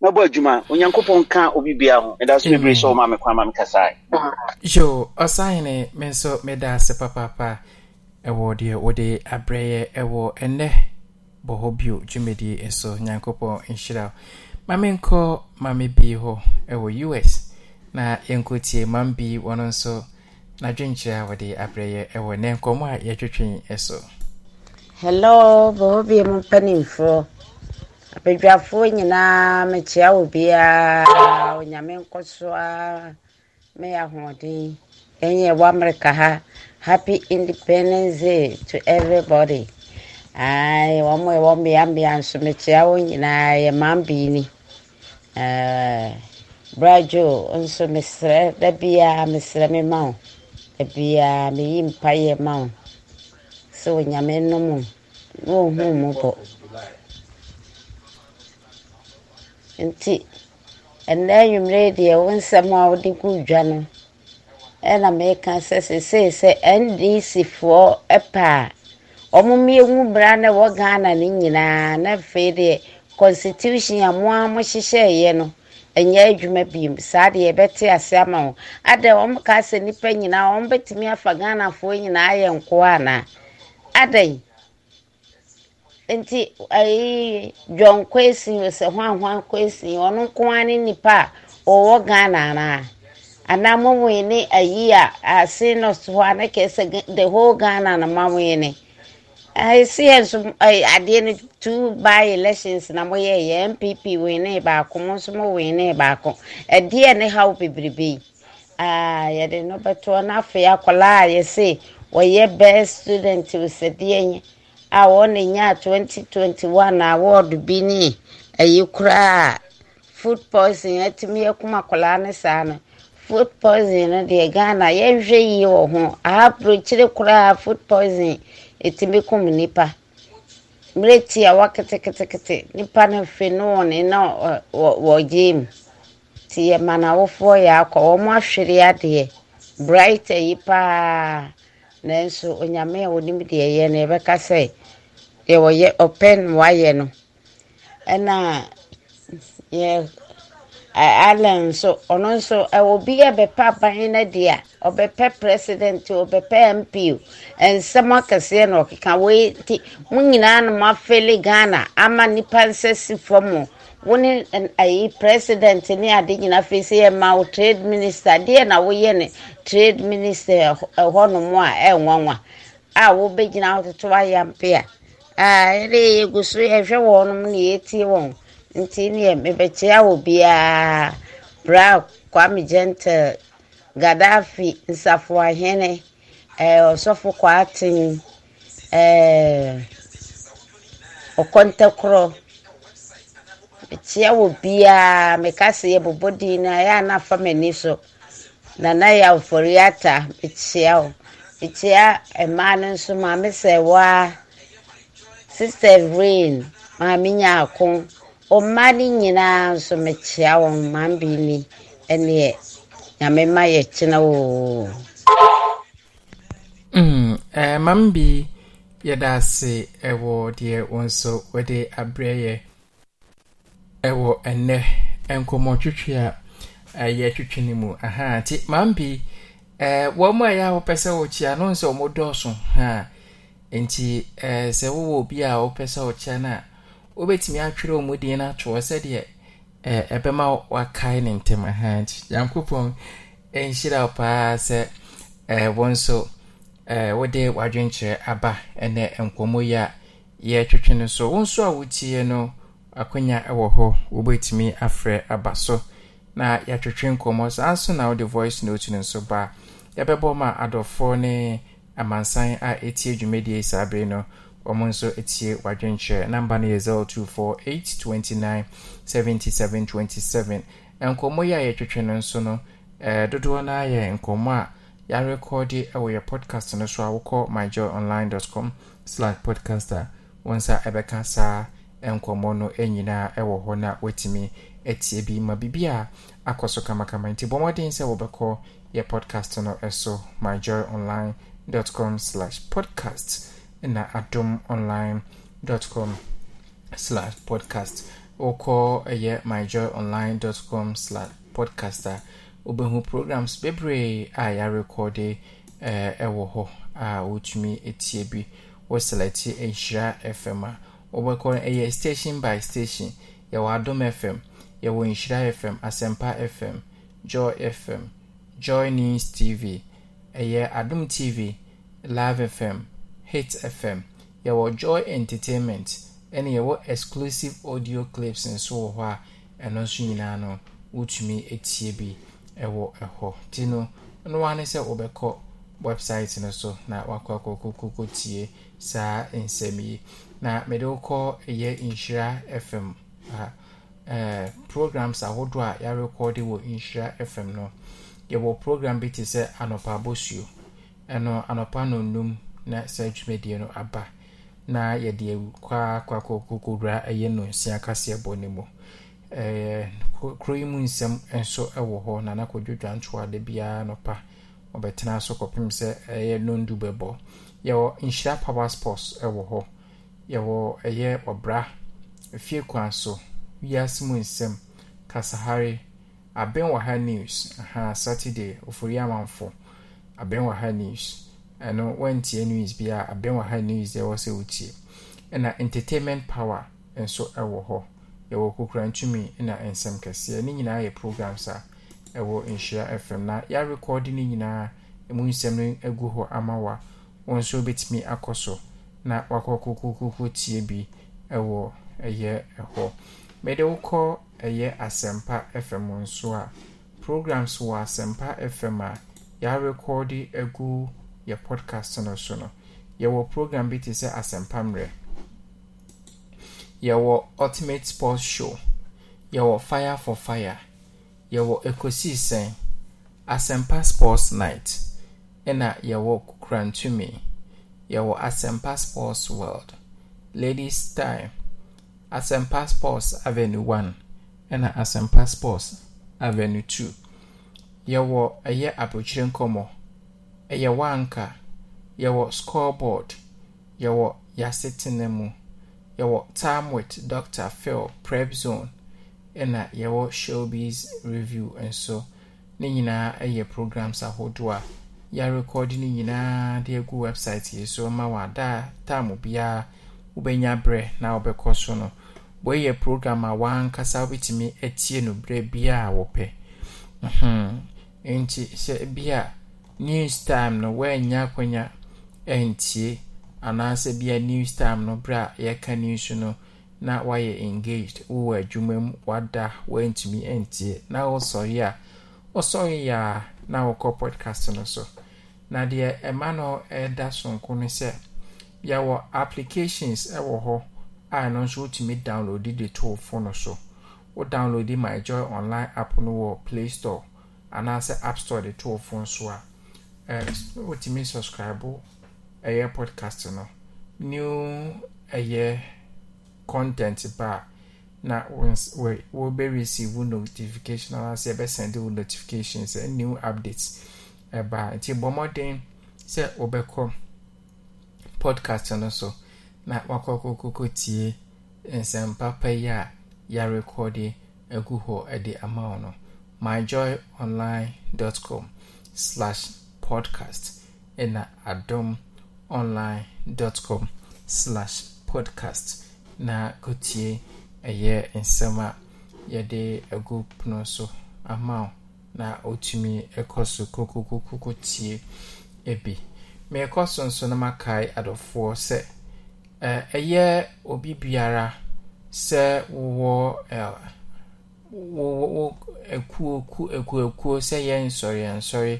na bɔ adwuma onyankopɔn ka obi bia ho meda so bebree sɛ ɔma me kwan ma mekasae yo ɔsahene me nso meda ase papaapa ɛwɔ deɛ wode abrɛyɛ ɛwɔ ɛnɛ bɔ hɔ bio dwumadie nso nyankopɔn nhyira ma menkɔ ma me bi hɔ ɛwɔ us na yɛnkɔtie mam bi wɔno nso n'adwenkyerɛ a wɔde abrɛ ɛwɔ ne nkɔmmɔ a yɛtwetwen so hello bɔɔ bie mu mpanimfoɔ abadwafoɔ nyinaa mekyea wo biara onyame nkɔ so a meyɛ ahoɔden ɛnyɛ wɔ amerika ha happy independence day to everybody ae wɔn a ɛwɔ mmeammea nso mekyea wo nyinaa yɛ mambii ni brajo nso mesrɛ da biara mesrɛ me ma wo biara meyi mpaeɛ ma wo sɛ onyame nom na ɔhu mu bɔ nti ɛnɛ anwummerɛ deɛ wo nsɛm a wode gu dwa no ɛna meka sɛ sesei sɛ ndcfoɔ pɛ a ɔmommiɛhu mmara na ɛwɔ ghana no nyinaa na afei deɛ constitution a mo a mohyehyɛeɛ no ɛnyɛ adwuma biem saa deɛ yɛbɛte ase ama wo ada wɔn ka sɛ nnipa nyinaa wɔn bɛtumi afa ghanafoɔ nyinaa ayɛ nkoa anaa ada nti ayi john kwesi sɛ hwanhwan kwesi ɔno nko ara ne nipa a ɔwɔ ghana anaa anaa mo ne ayi a ase no so hɔ a ne kɛse the whole ghana na ma ne. esi nso adeɛ no two by elections na moyɛ yɛ npp wene baako mo nso mo wene baako ɛdeɛ eh, ne haw bebrebe yi aa yɛde no bɛtoɔ n'afei akwadaa a yɛse wɔyɛ best student osadeɛ nye a wɔn nya twenty award bi eh, eh, ne ɛyi koraa food poison ɛtumi akwadaa ne saa food no ho food ɛtumi nipa mmerɛ ti a waketekete nipa no hwɛ ne wɔn ne na wɔgye mu ti yɛ ma n'awofoɔ yɛ akɔ wɔn ahwere adeɛ bright yi paa nanso onyame a onim deɛ ɛyɛ no yɛbɛka sɛ deɛ wɔyɛ ɔpɛ no wayɛ no ɛna yɛ allen nso ɔno nso ɛwɔ bi a bɛpa aban no deɛ a ɔbɛpɛ president o ɔbɛpɛ mp o nsɛm akɛseɛ na ɔkeka wei nti mo nyinaa no mo afele ghana ama nnipa nsa si fam o wo ne ayi president ne ade nyinaa afei sɛ yɛma wo trade minister deɛ na woyɛ ne trade minister ɛhɔnom a ɛnwanwa a wobɛgyina ahototo ayampe a ɛde yɛgu so yɛhwɛ wɔnom na yɛtie wɔn nti neɛ mebɛkyea wɔ biara bra kwame gentle gaddafi nsafoahene ɔsɔfo eh, kwaaten ɔkɔntɛkorɔ eh, mekyea wɔ biaa meka sɛ yɛbobɔ din na a ɛyɛ a na afa m'ani so nana yɛ afɔre ata mekyea wo mekyea eh, mmaa no nso maame sɛ waa sister rain maame nyaako ɔmmaa no nyinaa nso mekyea wɔn maame bi ni ɛneɛ nyame ma yɛ kyena oo mm, eh, mam bi yɛda ase ɛwɔ deɛ wo nso wɔde abrɛ yɛ ɛwɔ ɛnɛ nkɔmmɔtwitwi a ɛyɛ eh, twitwi no mu aha nti mam bi eh, wɔn a yɛ a wɔpɛ sɛ wɔkyia no nso wɔn dɔɔso ha nti eh, sɛ wowɔ obi a wɔpɛ sɛ wɔkyia no a wobɛtumi atwerɛ wɔn din no atoɔ sɛdeɛ ɛbɛma wakae ne ntɛm ha nti nyankopɔn nhyira wo paa sɛ wo nso wode w'adwenkyerɛ aba ɛnɛ nkɔmmɔ yi a yɛtwetwe no so wo nso a wotie no akonya wɔ hɔ wobɛtumi afrɛ aba so na yɛatwetwe nkɔmmɔ saa nso na wode voice note no nso ba yɛbɛbɔ ma adɔfoɔ ne amansan a ɛtie dwumadie saa bere no ɔmo nso tie w'adwenkyerɛ namba no yɛ 024829 7727 nkɔmmɔ yi a yɛtwetwe no nso no eh, dodoɔ no ayɛ nkɔmmɔ a yɛarekɔde wɔ yɛ podcast no so a wokɔ myjoyonline.com slash podcaster. a wo nsa ɛbɛka saa nkɔmmɔ no nyinaa ɛwɔ hɔ no a wɔatumi atie bi ma biribi a akɔ so kamakama nti bɔ mmɔden sɛ wɔbɛkɔ yɛ podcast no ɛso myjoyonline.com slash podcast na adomonline.com slash podcast wokɔ ɛyɛ myjoyonline.com slash podcaster wobɛhu programs bebree a yɛarekɔde eh, ɛwɔ hɔ a wotumi tie bi wo selɛte nhyira fm a wobɛkɔ ɛyɛ station by station yɛwɔ adom fm yɛwɔ nhyira fm asɛmpa fm joy fm joy news tv ɛyɛ adom tv live fm hit fm yɛwɔ joy entertainment ɛna yɛwɔ exclusive audio clips nso wɔ hɔ a ɛno nso nyinaa no wotumi etie bi ɛwɔ ɛhɔ ti no noa ne sɛ wɔbɛkɔ website no so na wakɔ akɔkɔkɔkɔ tie saa nsɛm yi na mɛde wokɔ ɛyɛ nhyira fm a ɛɛ programs ahodoɔ a yɛarekɔɔde wɔ nhyira fm no yɛwɔ program bi te sɛ anɔpa abosuo ɛno anɔpa no num na saa dwumadie no aba. na yɛde kwakɔkɔkɔwura ɛyɛ no nsia kaseɛ bɔ ne mu kuro yi mu nsɛm nso wɔ hɔ na na kɔdwodwa ntoada biara nɔpa ɔbɛtena so kɔpem sɛ ɛyɛ nondu bɛbɔ yɛwɔ nhyira power sports wɔ hɔ yɛwɔ ɛyɛ ɔbra fie kwan so wiase mu nsɛm kasahare abenwaha wɔ news aha saturday ofori amanfo abɛn wɔ ha news ɛno wantie news bi a abɛn wɔ ha news deɛ ɛwɔ sɛ wotie ɛna entertainment power nso ɛwɔ hɔ yɛwɔ kokura ntumi na nsɛm kɛseɛ ne nyinaa yɛ programs a ɛwɔ nhyira fm na yɛarekɔɔde no nyinaa ɛmu nsɛm no agu hɔ ama wa wɔn nso bɛtumi akɔ so na wakɔ kokokoko tie bi ɛwɔ ɛyɛ ɛhɔ mɛde wokɔ ɛyɛ asɛmpa fm nso a programs wɔ asɛmpa fm a yɛarekɔɔde agu yɛ podcast no so no yɛwɔ program bi te sɛ asɛmpa yɛwɔ ultimate sports show yɛwɔ fire for fire yɛwɔ ekosisɛn asɛmpa sports night ɛna yɛwɔ kurantumi yɛwɔ asɛmpa sports world ladies time asɛmpa sports avenue one ɛna asɛmpa sports avenue two yɛwɔ ɛyɛ abotire nkɔmɔ. ɛyɛ wanka yɛwɔ scoreboard yɛwɔ yasetena mu yɛwɔ time with dr phil prep zone ɛna yɛwɔ shelby's review nso ne nyinaa ɛyɛ programs ahodoɔ a yɛarekɔde no nyinaa de agu website yi so ma wadaa time biara wobɛnya berɛ na wobɛkɔ so no wɔyɛ program a wankasa wobɛtumi atie no berɛ biara wɔpɛ nti hyɛ bi a news time no wɔanya akwanya ntie anaasɛ bia news time no berɛ a yɛka news no na wayɛ engaged wowɔ adwuma mu wada woantumi ntie na wosɔre a wosɔre a na wokɔ podcast no so na deɛ ɛma no ɛda sonko no sɛ yɛwɔ applications ɛwɔ hɔ a ɛno nso wotumi download de too fono so wo download my joy online app no wɔ play store anaasɛ app store de to fo nso a wotumi subscribe ɛyɛ podcast no new ɛyɛ content ba a na wɔbɛreceive wo notification anaasɛ yɛbɛsɛnde wo notification sɛ new updates ɛba a nti bɔ mmɔden sɛ wobɛkɔ podcast no so na wakɔkɔkɔkɔ tie nsɛmpa pa yi a yɛarekɔde agu hɔ de ama wo no myjoyonline.com slash podcast ɛna adom online dot com slash podcast na kotie ɛyɛ nsɛm a yɛde agu pono so ama wo na otumi ɛkɔ so kokokokoko tie ebi mmeekɔ so nso na makae adɔfoɔ sɛ ɛyɛ obi biara sɛ wowɔ ɛɛ wo wo ekuo ku ekuo ekuo sɛ yɛn nsɔre nsɔre.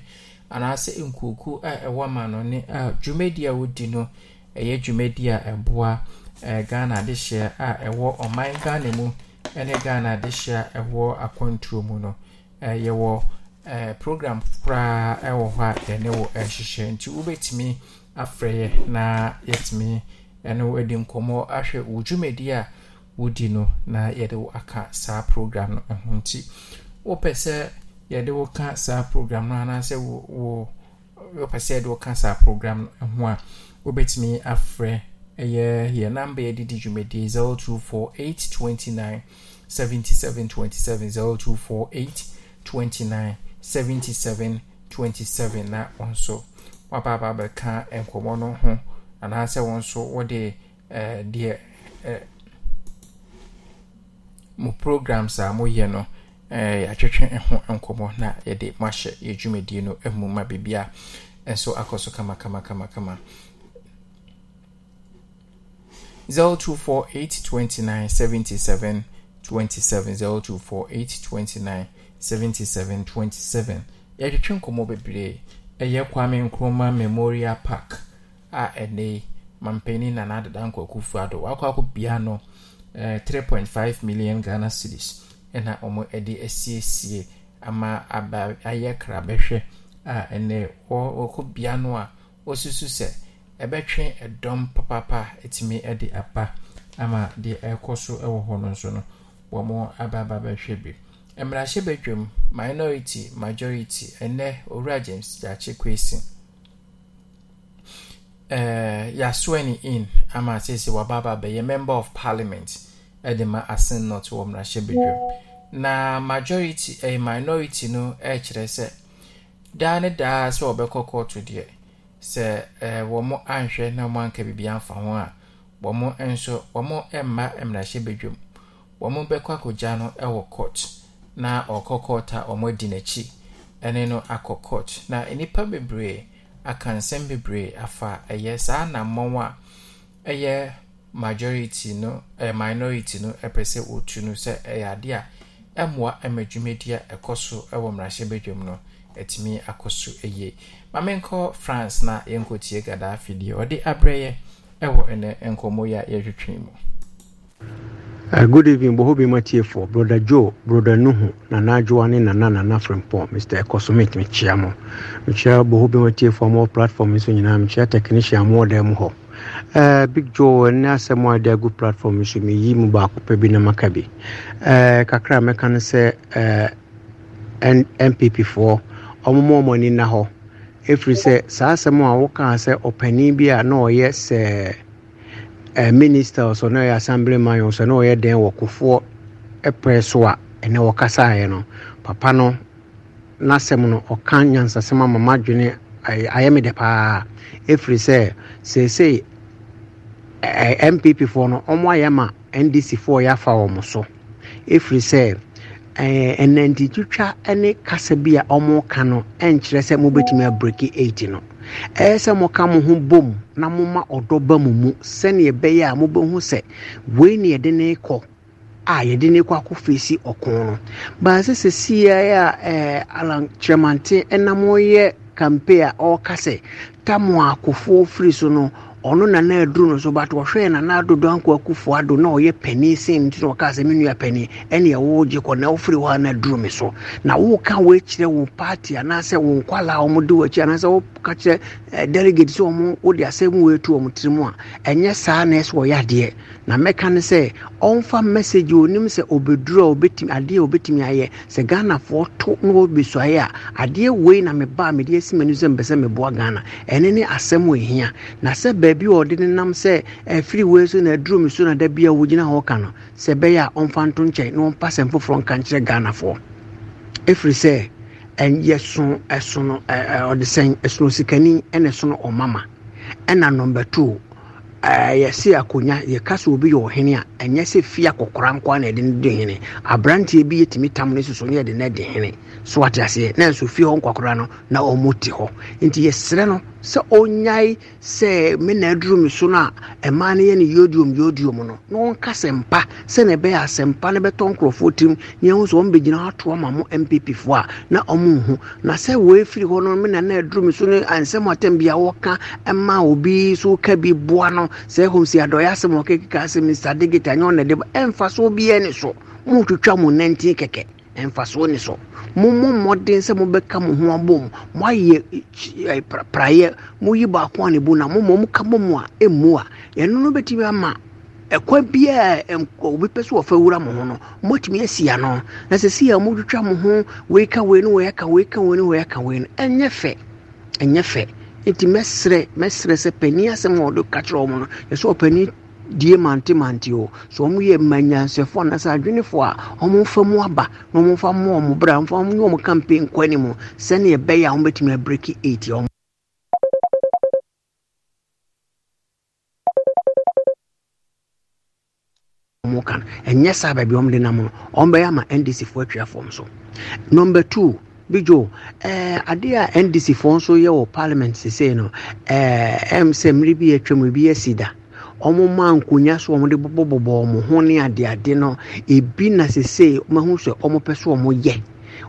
anaasị nkuokuo a ɛwɔ ma no ne dwumadie a wodi no ɛyɛ dwumadie a ɛboa ghana adehyeɛ a ɛwɔ ɔman ghana mu ne ghana adehyeɛ a ɛwɔ akwantuo mu no yɛwɔ program koraa ɛwɔ hɔ a yɛne wɔ ɛhyehyɛ nti wobɛtumi afrɛ yɛ na yɛtumi ɛne wo adi nkɔmmɔ ahwɛ wo dwumadi a wodi no na yɛde aka saa program no ho nti wopɛ sɛ yɛde wo ka saa program no anaasɛ wo wopɛ sɛ yɛde wo ka saa program no ho a wobɛtumi afrɛ ɛyɛ yɛ namba yɛdedi dwumadie 0248 29 77 27 0248 29 77 27 na wɔn nso waba aba abɛka nkɔmmɔ no ho anaasɛ wɔn nso wɔde ɛɛ deɛ ɛɛ mo programs a moyɛ no. Eh, yɛatwetwe ho nkɔmmɔ na yɛde moahyɛ yɛ dwumadie no mu ma biribia nso akɔ so kamakamakama 0248297727 0248297727 yɛatwetwe nkɔmmɔ bebree ɛyɛ kwame nkroma memorial park a ɛne mampani nana adeda nkwakufu ado wakɔ akɔ bia no 3.5 eh, million ghana cities na wɔn de asiesie ama aba ayɛ krabɛhwɛ a ɛnɛ wɔ wɔkɔ bea no a wɔsusu sɛ ɛbɛtwe ɛdɔm papapa etumi de aba ama deɛ ɛrekɔ so wɔ hɔ no nso no wɔn aba aba bɛhwɛ bi mmarahyɛbadwam minority majority ɛnɛ owura james dakye kwesi ɛɛ yaswani in ama sisi wababa bɛyɛ member of parliament de ma ase not wɔ mmarahyɛbadwam na majority eh, minority no ɛkyerɛ sɛ daa ne daa sɛ wɔbɛkɔ kɔɔto deɛ sɛ eh, wɔn anhwɛ na wɔn anka biribi amfa ho a wɔn nso wɔn mma mmarahyɛbadwam wɔn bɛkɔ akɔgya no wɔ court na ɔkɔ court a wɔn adi n'akyi ne no akɔ court na nnipa bebree aka nsɛm bebree afa ɛyɛ saa anammɔn a ɛyɛ majority no eh, minority no ɛpɛ eh, sɛ sɛ ɛyɛ ade a ɛmmoa ma dwumadi ɛkɔ so wɔ mmarahyɛbadwam no atumi akɔ so yie ma menkɔ france na yɛnkɔtie gadaafi deɛ ɔde abrɛyɛ ɛwɔ ɛnɛ nkɔmmɔ yi a yɛhwetwe mu Uh, good evening, Bohobi Matiefo, Brother Joe, Brother Nuhu, Nana Nana Nana Mr. Ekosumit, Michiamo. Michia more platform, Mr. Technician, more Eh, big joe ne asɛm a de agu platform so meyi mu baako pɛ bi na maka bi uh, kakra mɛka no sɛ uh, eh, npp foɔ ɔmoma ɔmɔni nna hɔ ɛfiri sɛ saa asɛm a wokaa sɛ ɔpanin bi a na ɔyɛ sɛ minister so na ɔyɛ assembly man so na ɔyɛ den wɔ kofoɔ ɛpɛ e so a ɛnɛ wɔkasaeɛ no papa no n'asɛm no ɔka nyansasɛm ama madwene ayɛ me dɛ paa ɛfiri sɛ seesei npp foɔ no ɔmo ayɛ ma ndc foɔ yɛafa wɔn so efiri sɛ ɛnantitwitwa ne kasa bi a ɔmo ka no ɛnkyerɛ sɛ mobɛtumi abreki 8 no ɛyɛ sɛ ka mo ho bom na moma ɔdɔ ba mu mu sɛneɛ ɛbɛyɛ a mobɛhu sɛ wei ne yɛde ne kɔ a yɛde ne kɔ akɔfeesi ɔko no baasɛ sɛ siaeɛ a alankyerɛmante ɛnam ɔyɛ kampe a ɔreka sɛ tamo akofoɔ firi so no ɔno na na aduru no so but wɔhwɛɛ na na adodo anko akufo ado na ɔyɛ pani sen nti na ɔkaa sɛ me nua pani ɛne ɛwo gye kɔ na wofiri hɔ a na aduru me so na woka woakyerɛ wo party anaasɛ wo nkwala a ɔmode w'akyi anaasɛ woka kyerɛ eh, delegate sɛ ɔmo wode asɛm woatu ɔmo tiri mu a ɛnyɛ saa na ɛsɛ ɔyɛ adeɛ na mɛka ne sɛ ɔmfa message onim sɛ obɛduru a obɛtumi adeɛ a obɛtumi ayɛ sɛ ghanafoɔ to na wɔbɛsuaeɛ a adeɛ wei na mebaa mede asi m'ani sɛ mpɛ sɛ meboa ghana ɛne ne asɛm ohia na sɛ baabi a ɔde ne nam sɛ ɛfiri wei so na aduro mi so na da bi a wɔgyina hɔ ka no sɛ ɛbɛyɛ a ɔmfa nto nkyɛn na ɔmpa sɛm foforɔ nka nkyerɛ ghanafoɔ ɛfiri sɛ ɛnyɛ so ɛso no ɛɛ ɔde sɛn ɛsono sikani ɛna ɛso no ɔmama ɛna nɔmba two Eh, yɛse akonnwa yɛka obi yɛ ɔhene a ɛnyɛ sɛ fie akɔkora na yɛde no di hene aberanteɛ bi yɛtumi tam no soso ne yɛde no na nso fie hɔ nkwakora no na ɔmo te hɔ nti yɛserɛ no sɛ ɔnyae sɛ me na so no a ɛmaa na ɔnka sɛmpa sɛne ɛbɛyɛ asɛmpa no bɛtɔ nkurɔfoɔ tirim ne sɛ na ɔmo nhu na na na so no ansɛm sɛ ɛhɔ si adɔyɛ asɛm ɔkekeka asɛm mr digit anyɛ ɔna de ba ɛmfasoɔ biɛ ne so motwitwa mo nantin kɛkɛ ɛmfasoɔ ne so mommɔ mmɔden sɛ mobɛka mo ho abom moayɛ eh, praeɛ moyi baako a ne bu na mommɔ moka bɔ mu a ɛmmu a ɛno no bɛtumi ama ɛkwa biaa obi pɛ sɛ wɔfa wura mo ho no moatumi asi ano na sɛ si a motwitwa mo ho weika wei no wɔyɛka weika no wɔyɛka wei no ɛnyɛ fɛ ɛnyɛ fɛ nti mɛsrɛ mɛsrɛ sɛ panin asɛm a ɔde ka kyerɛ ɔmo no yɛsɛ ɔpanin die mante mante o sɛ ɔmo yɛ mmanyansɛfoɔ anaasɛ adwenefoɔ a ɔmo mfa mu aba na ɔmo mfa mu ɔmo bra mfa mu nyɛ ɔmo campaign kɔ anim sɛnea ɛbɛyɛ a ɔmo bɛtumi abiriki eight ɔmo. ɔmo kan ɛnyɛ saa baabi ɔmo de nam no ɔmo bɛyɛ ama ndc foɔ atwa fam so number two bijo ɛɛ eh, adeɛ a ndc foɔ nso yɛ wɔ parliament sese no ɛɛ eh, ɛm sɛ mmiri bi atwam ebi asi da wɔn ma nkonnwa so wɔn de bɔbɔbɔbɔ wɔn ho ne adeade no ebi na sese wɔn ho sɛ wɔn pɛ so wɔn yɛ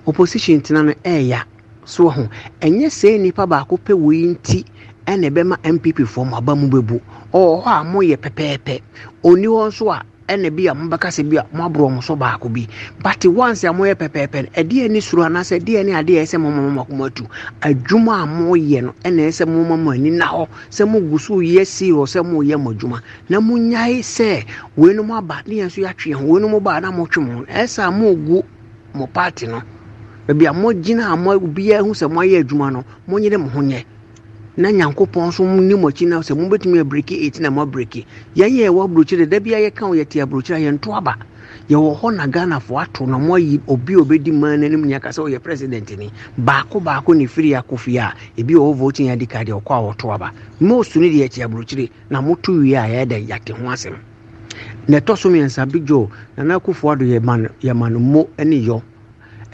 opposition tena no ɛɛya so ho ɛnyɛ sɛ nipa baako pɛ wɔ yi nti ɛna ɛbɛma npp foɔ mo aba mu bɛbu ɔwɔ hɔ a mo yɛ pɛpɛɛpɛ oni hɔ nso a ɛna bi a mobɛka sɛ bi a moaborɔ mo so baako bi but once e a moyɛ pɛpɛɛpɛ no ɛdeɛ ne suro anaasɛ ɛdeɛ ne adeɛ ɛsɛ momama mo akoma atu adwuma a moyɛ no ɛna e ɛsɛ momama mo ani na hɔ sɛ mogu so yɛ see hɔ sɛ moyɛ mo adwuma na monyae sɛ weinom aba ne yɛn nso yɛatwe ho weinom baa na motwe mo ho ɛsɛ a mogu mo party no baabi a mogyina a mo biara hu sɛ moayɛ adwuma no monyere mo ho nyɛ na nyankopɔn nso ne mo akyi na sɛ mobɛtumi abreki ɛti na moabreki yɛn yɛ ɛwɔ aburokyire da bia yɛka wo yɛte aburokyire a yɛnto aba yɛwɔ hɔ na ghanafoɔ ato na moayi obi a obɛdi man no anim nyaka sɛ ɔyɛ president ni baako baako ne firi akɔfie a ebi ɔwɔ voting adi ka deɛ ɔkɔ a wɔto aba most no deɛ ɛte aburokyire na moto wie a yɛda yɛate ho asɛm na ɛtɔ so mmiɛnsa big joe nana akufo ado mo ne yɔ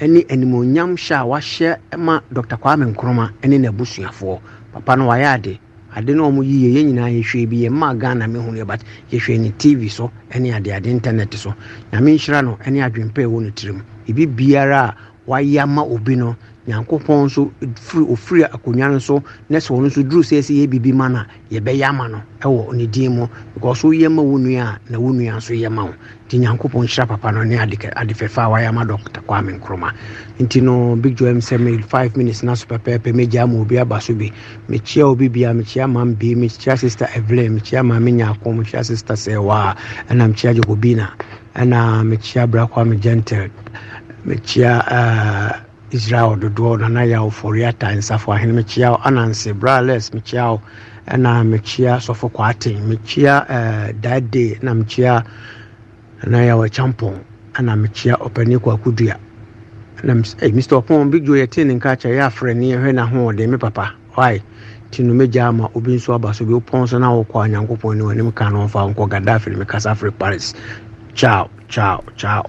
ne animonyam hyɛ a wahyɛ ma dr kwame nkroma ne n'abusuafoɔ papa no wayɛ ade ade no ɔmo yiyɛ yɛn nyinaa yɛhwɛ bi yɛn mmaa ghana mi hu yɛ but yɛhwɛ ne tv so ɛne ade ade internet so nyame nhyira no ɛne adwempɛ ɛwɔ ne tirim ebi biara a wayɛ ama obi no nyankopɔn nso firi ofiri akonnwa no so ne sɛ ɔno nso duru sɛ sɛ yɛ biribi ma no yɛbɛyɛ ama no ɛwɔ ne din mu because woyɛ ma wo nua a na wo nua nso yɛ ma wo nti nyankopɔn hyira papa no ne ade adefɛfa a wayɛ ama dɔkta kwame nkroma nti no big joam sɛ me 5 minutes na so pɛpɛɛpɛ mɛgyaa ma obi aba so bi mekyia obi bia mekyia ma mbi mekyia sister evelyn mekyia ma me nyako mekyia sister sɛwa ɛna mekyia jokobina ɛna mekyia bra kwame gentle mekyia uh, israel dodoɔ nana yɛwo fɔriata nsafo ahene mekyia wo ananse brales mekyia wo ɛna mekyia sɔfo kwaaten mekyia uh, dade na mekyia eh, na yɛwɔ champon ɛna mekyia ɔpani kwakodua na hey, mr ɔpon big jo yɛtee ne nka kyɛ yɛafrɛ ne yɛhwɛ no ahoɔden me papa wae nti no mɛgya ama obi nso aba so bi wopɔn so na wokɔ onyankopɔn ne w'anim ka no ɔmfa nkɔ gaddafi ne mekasa afiri paris ciao ciao ciao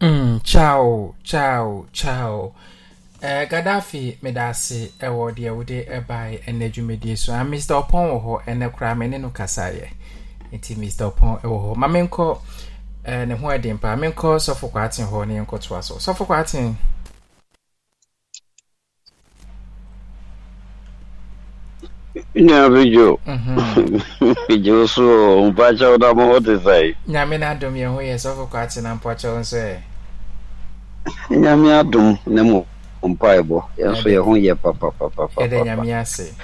Mm, ciao ciao ciao uh, gaddafi meda ase ɛwɔ eh, uh, deɛ wode ɛbae eh, uh, ɛnɛ dwumadie so a ah, mr ɔpɔn wɔ hɔ ɛnɛ koraa me ne no kasaeɛ nti mr ɔpɔn ɛwɔ hɔ ma menkɔ uh, ne ho adi paa menkɔ sɔfo kwaaten hɔ ne yɛnkɔtoa so sɔfo kwaaten nyame jo mm-hmm. <laughs> jo so mpakyɛw da ma wote sɛe nyame no adom yɛ ho yɛ sɔfo kɔ ate na mpakyɛw nso ɛ nyame adom ne mu mpaebɔ yɛnso yɛ ho yɛ papapapapayɛdɛ nyame ase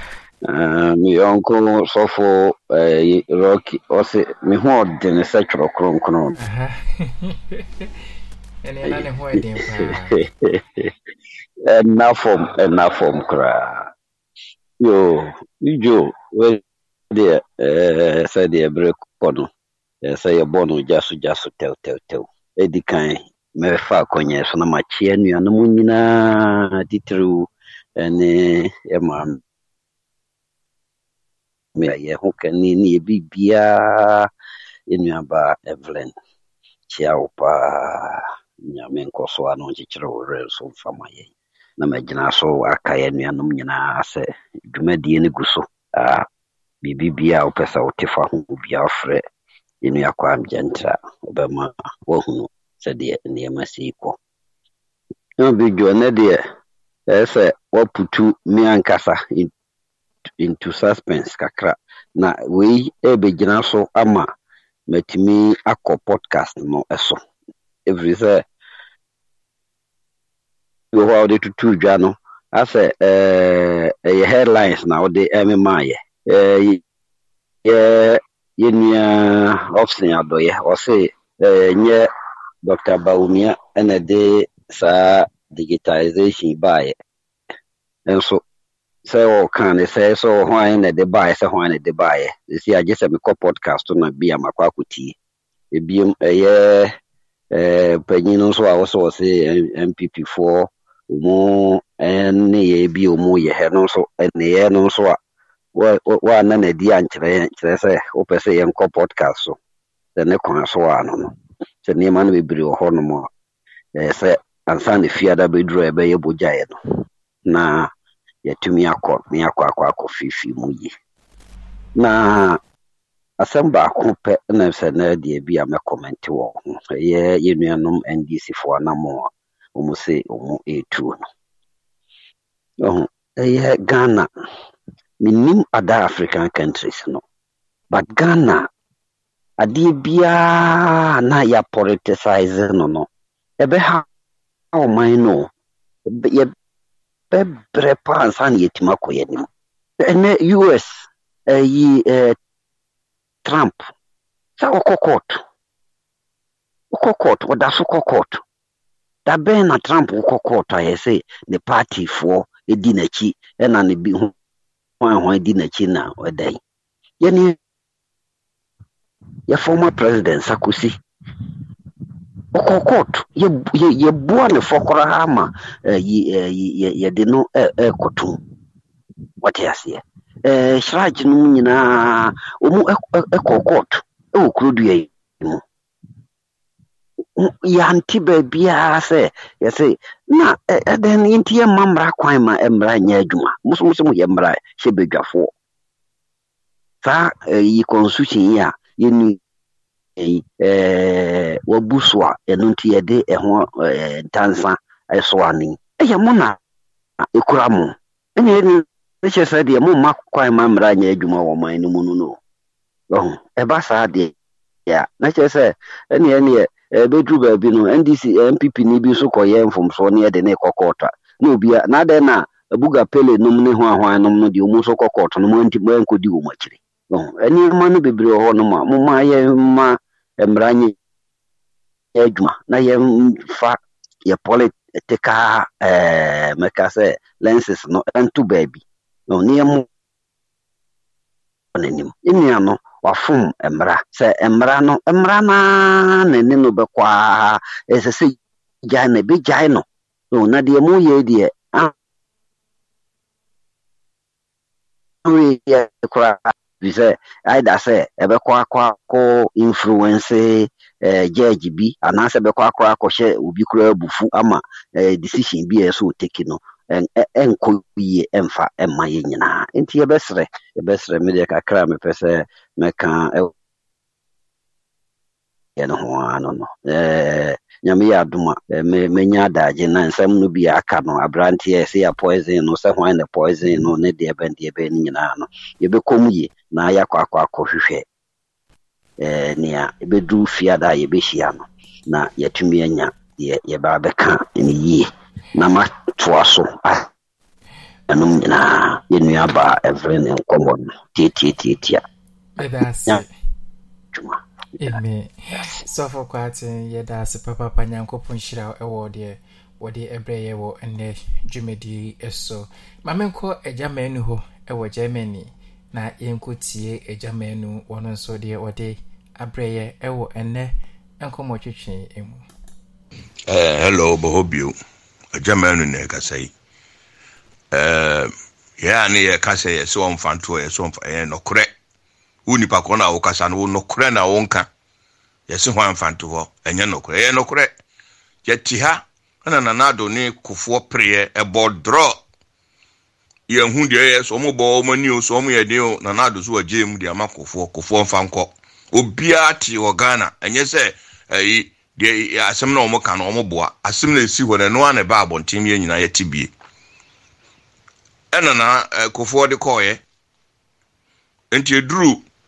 meyɔnko sɔfo rocky ɔse me ho ɔdene sɛ twerɛ kronkron ɛna ɛna fam koraa Yo, Joe, where there, uh, eh, say the break on, uh, say a bono jaso jaso tell tell tell. Edi kan mefa akɔnyɛ so na makyea nnuanom nyinaa titiriw ne ɛma me a yɛho kane ne yɛbiribiaa mfa ma na magyina so aka yɛ nuanom nyinaa sɛ dwumadie no gu so biribibia a wopɛ sɛ wote fa ho bia wofrɛ yɛnua kɔ amgyɛntra wobɛma woahunu sɛdeɛ nneɛma sei kɔ bidwo nɛ deɛ ɛɛ sɛ woaputu me ankasa into suspense kakra na wei ɛbɛgyina so ama matumi akɔ podcast no ɛso ɛfiri sɛ wɔ hɔ a wɔde tutu dwa no asɛ ɛɛ ɛyɛ headlines na wɔde ɛmemaayɛ ɛɛ yɛ yɛ nua ɔfsen adɔyɛ ɔse nyɛ dr bawumia ɛna de saa digitalization baayɛ nso sɛ ɔka ne sɛ sɛ hwan na ɛde baayɛ sɛ hwan na ɛde baayɛ esi agye sɛ mekɔ podcast na bi a makɔ akɔtie ebiom ɛyɛ ɛɛ panyin no nso a wɔsɛ wɔsɛ npp foɔ ụmụ nneyɛɛ bi a wɔn yɛ hɛ no nso a wɔanna n'adi ankyerɛ kyerɛ sɛ wopɛ sɛ so so a no no na nneɛma no bebree wɔ a ɛyɛ sɛ ansa na fiada bɛduru a ɛbɛyɛ bogyaeɛ no na yɛatumi akɔ akọ akɔ akɔ akɔ fiifii mu yie na na na a ndc wɔn sɛ wɔn retuo no ɛyɛ ghana menim ada african countries no but ghana adeɛ biara na yɛapoliticize no no ɛbɛha ɔman no yɛbɛbrɛ paa ansa na yɛtumi akɔ yɛ anim ɛnɛ us ɛyi ɛɛ trump sɛ ɔkɔ court ɔkɔ court ɔda so kɔ court da na trump wokɔ kɔɔtɔ a yɛsɛ ne partyfoɔ di n'akyi ɛna ne bi ho hwan di n'akyi na ɔda yi yɛne yɛ former president sakosi ɔkɔ kɔɔto yɛboa ne fɔ koraa ma yɛde no ɛkɔto wɔte aseɛ hyirakye no mu nyinaa ɔmu ɛkɔ kɔɔto ɛwɔ kurodua yi mu yɛnte baabiaa sɛ yɛse na ɛdɛn no yɛnti yɛmma mmara kwan ma mmara nyɛ adwuma mosomoso mu yɛ mmara hyɛ badwafoɔ saa yi constitution yi a yɛni wabu so a ɛno nti yɛde ɛho ntansa ɛsoa no ɛyɛ mo na ɛkura mo ɛnyɛ ɛni ne kyerɛ sɛ deɛ momma kwan ma mmara nyɛ adwuma wɔ man no mu no no ɛba saa deɛ na kyerɛ sɛ ɛneɛ neɛ ɛbɛduru baabi no ndc npp ni bi nso kɔyɛ mfomsoɔ ne ɛde ne kɔ kɔɔtɔ na obia na adɛn na abuga pele nom ne ho ahwan nom no deɛ ɔmu nso kɔ kɔɔtɔ no mɔnti mɔnkɔdi wɔ mu akyiri nneɛma no bebree wɔ hɔ nom a moma yɛma mmara nyɛ adwuma na yɛmfa yɛ political ɛɛ mɛka sɛ lenses no ɛnto baabi na yɛmmɔ n'anim nnia no wafom mmara sɛ mmara no mmara na ɛne no bɛkɔ aa ɛsɛ sɛ gyae no ɛbɛgyae no na deɛ moyɛ deɛ yɛ koraa fi sɛ aida sɛ ɛbɛkɔ akɔ akɔ influence gyage eh, bi anaasɛ ɛbɛkɔ akɔ akɔhyɛ obi koraa abufu ama eh, decision bi a ɛsɛ ɔteki ɛnkɔ e, yie ɛmfa ɛma yɛ nyinaa nti yɛbɛserɛ yɛbɛserɛ me deɛ kakra a mepɛ sɛ mɛka yɛ no ho ano no e, nyame yɛ adom a e, mɛnya adagye na nsɛm no bi aka no aberanteɛ sɛ yɛ poison no sɛ hwan ne poison no ne deɛ bɛn deɛ bɛn no nyinaa no yɛbɛkɔ mu yie na yɛakɔ akɔ akɔ hwehwɛ. nea ɛbɛduru fie ada a yɛbɛhyia no na yɛatumi anya yɛbaa bɛka ne yie na matoa so anom nyinaa yɛnnua baa ɛvere ne nkɔmmɔ no tiatiatiatia Amen. Sɔfo kwate yɛda ase papapa nyankopɔn hyira ɛwɔ deɛ wɔde ɛbrɛ yɛ wɔ ɛnɛ dwumadie ɛso. Maame nkɔ agyaman no hɔ ɛwɔ Germany na yɛnkɔtie agyaman no wɔn nso deɛ wɔde abrɛ yɛ ɛwɔ ɛnɛ nkɔmmɔ twitwi mu. Ɛɛ eh, hello bɔhɔ bio. germany na ɛkasa yi yɛa ne yɛka sɛ yɛsɛ ɔmfa ntoɔ yɛsɛ ɔmfa ɛyɛ nɔkorɛ wo nipa korɔ na wokasa no wo nɔkorɛ na wonka yɛse hɔ amfa nto hɔ ɛnyɛ nɔkorɛ ɛyɛ nɔkorɛ yɛte ha ɛna nanado ne kofoɔ pereɛ ɛbɔ drɔ yɛhu deɛ ɛyɛ sɛ ɔmo bɔ ɔmo ani o sɛ ɔmo yɛ den o nanado so wɔ gyeemu de ama kofoɔ kofoɔ mfa nkɔ obiara te wɔ ghana ɛnyɛ sɛ ɛyi deɛ asɛm na wɔn ka na wɔn boa asɛm na esi hɔ na noa na ɛba abɔnten yɛn nyinaa yɛte bie ɛna na ɛkofoɔ eh, de kɔɔɛ nti eduru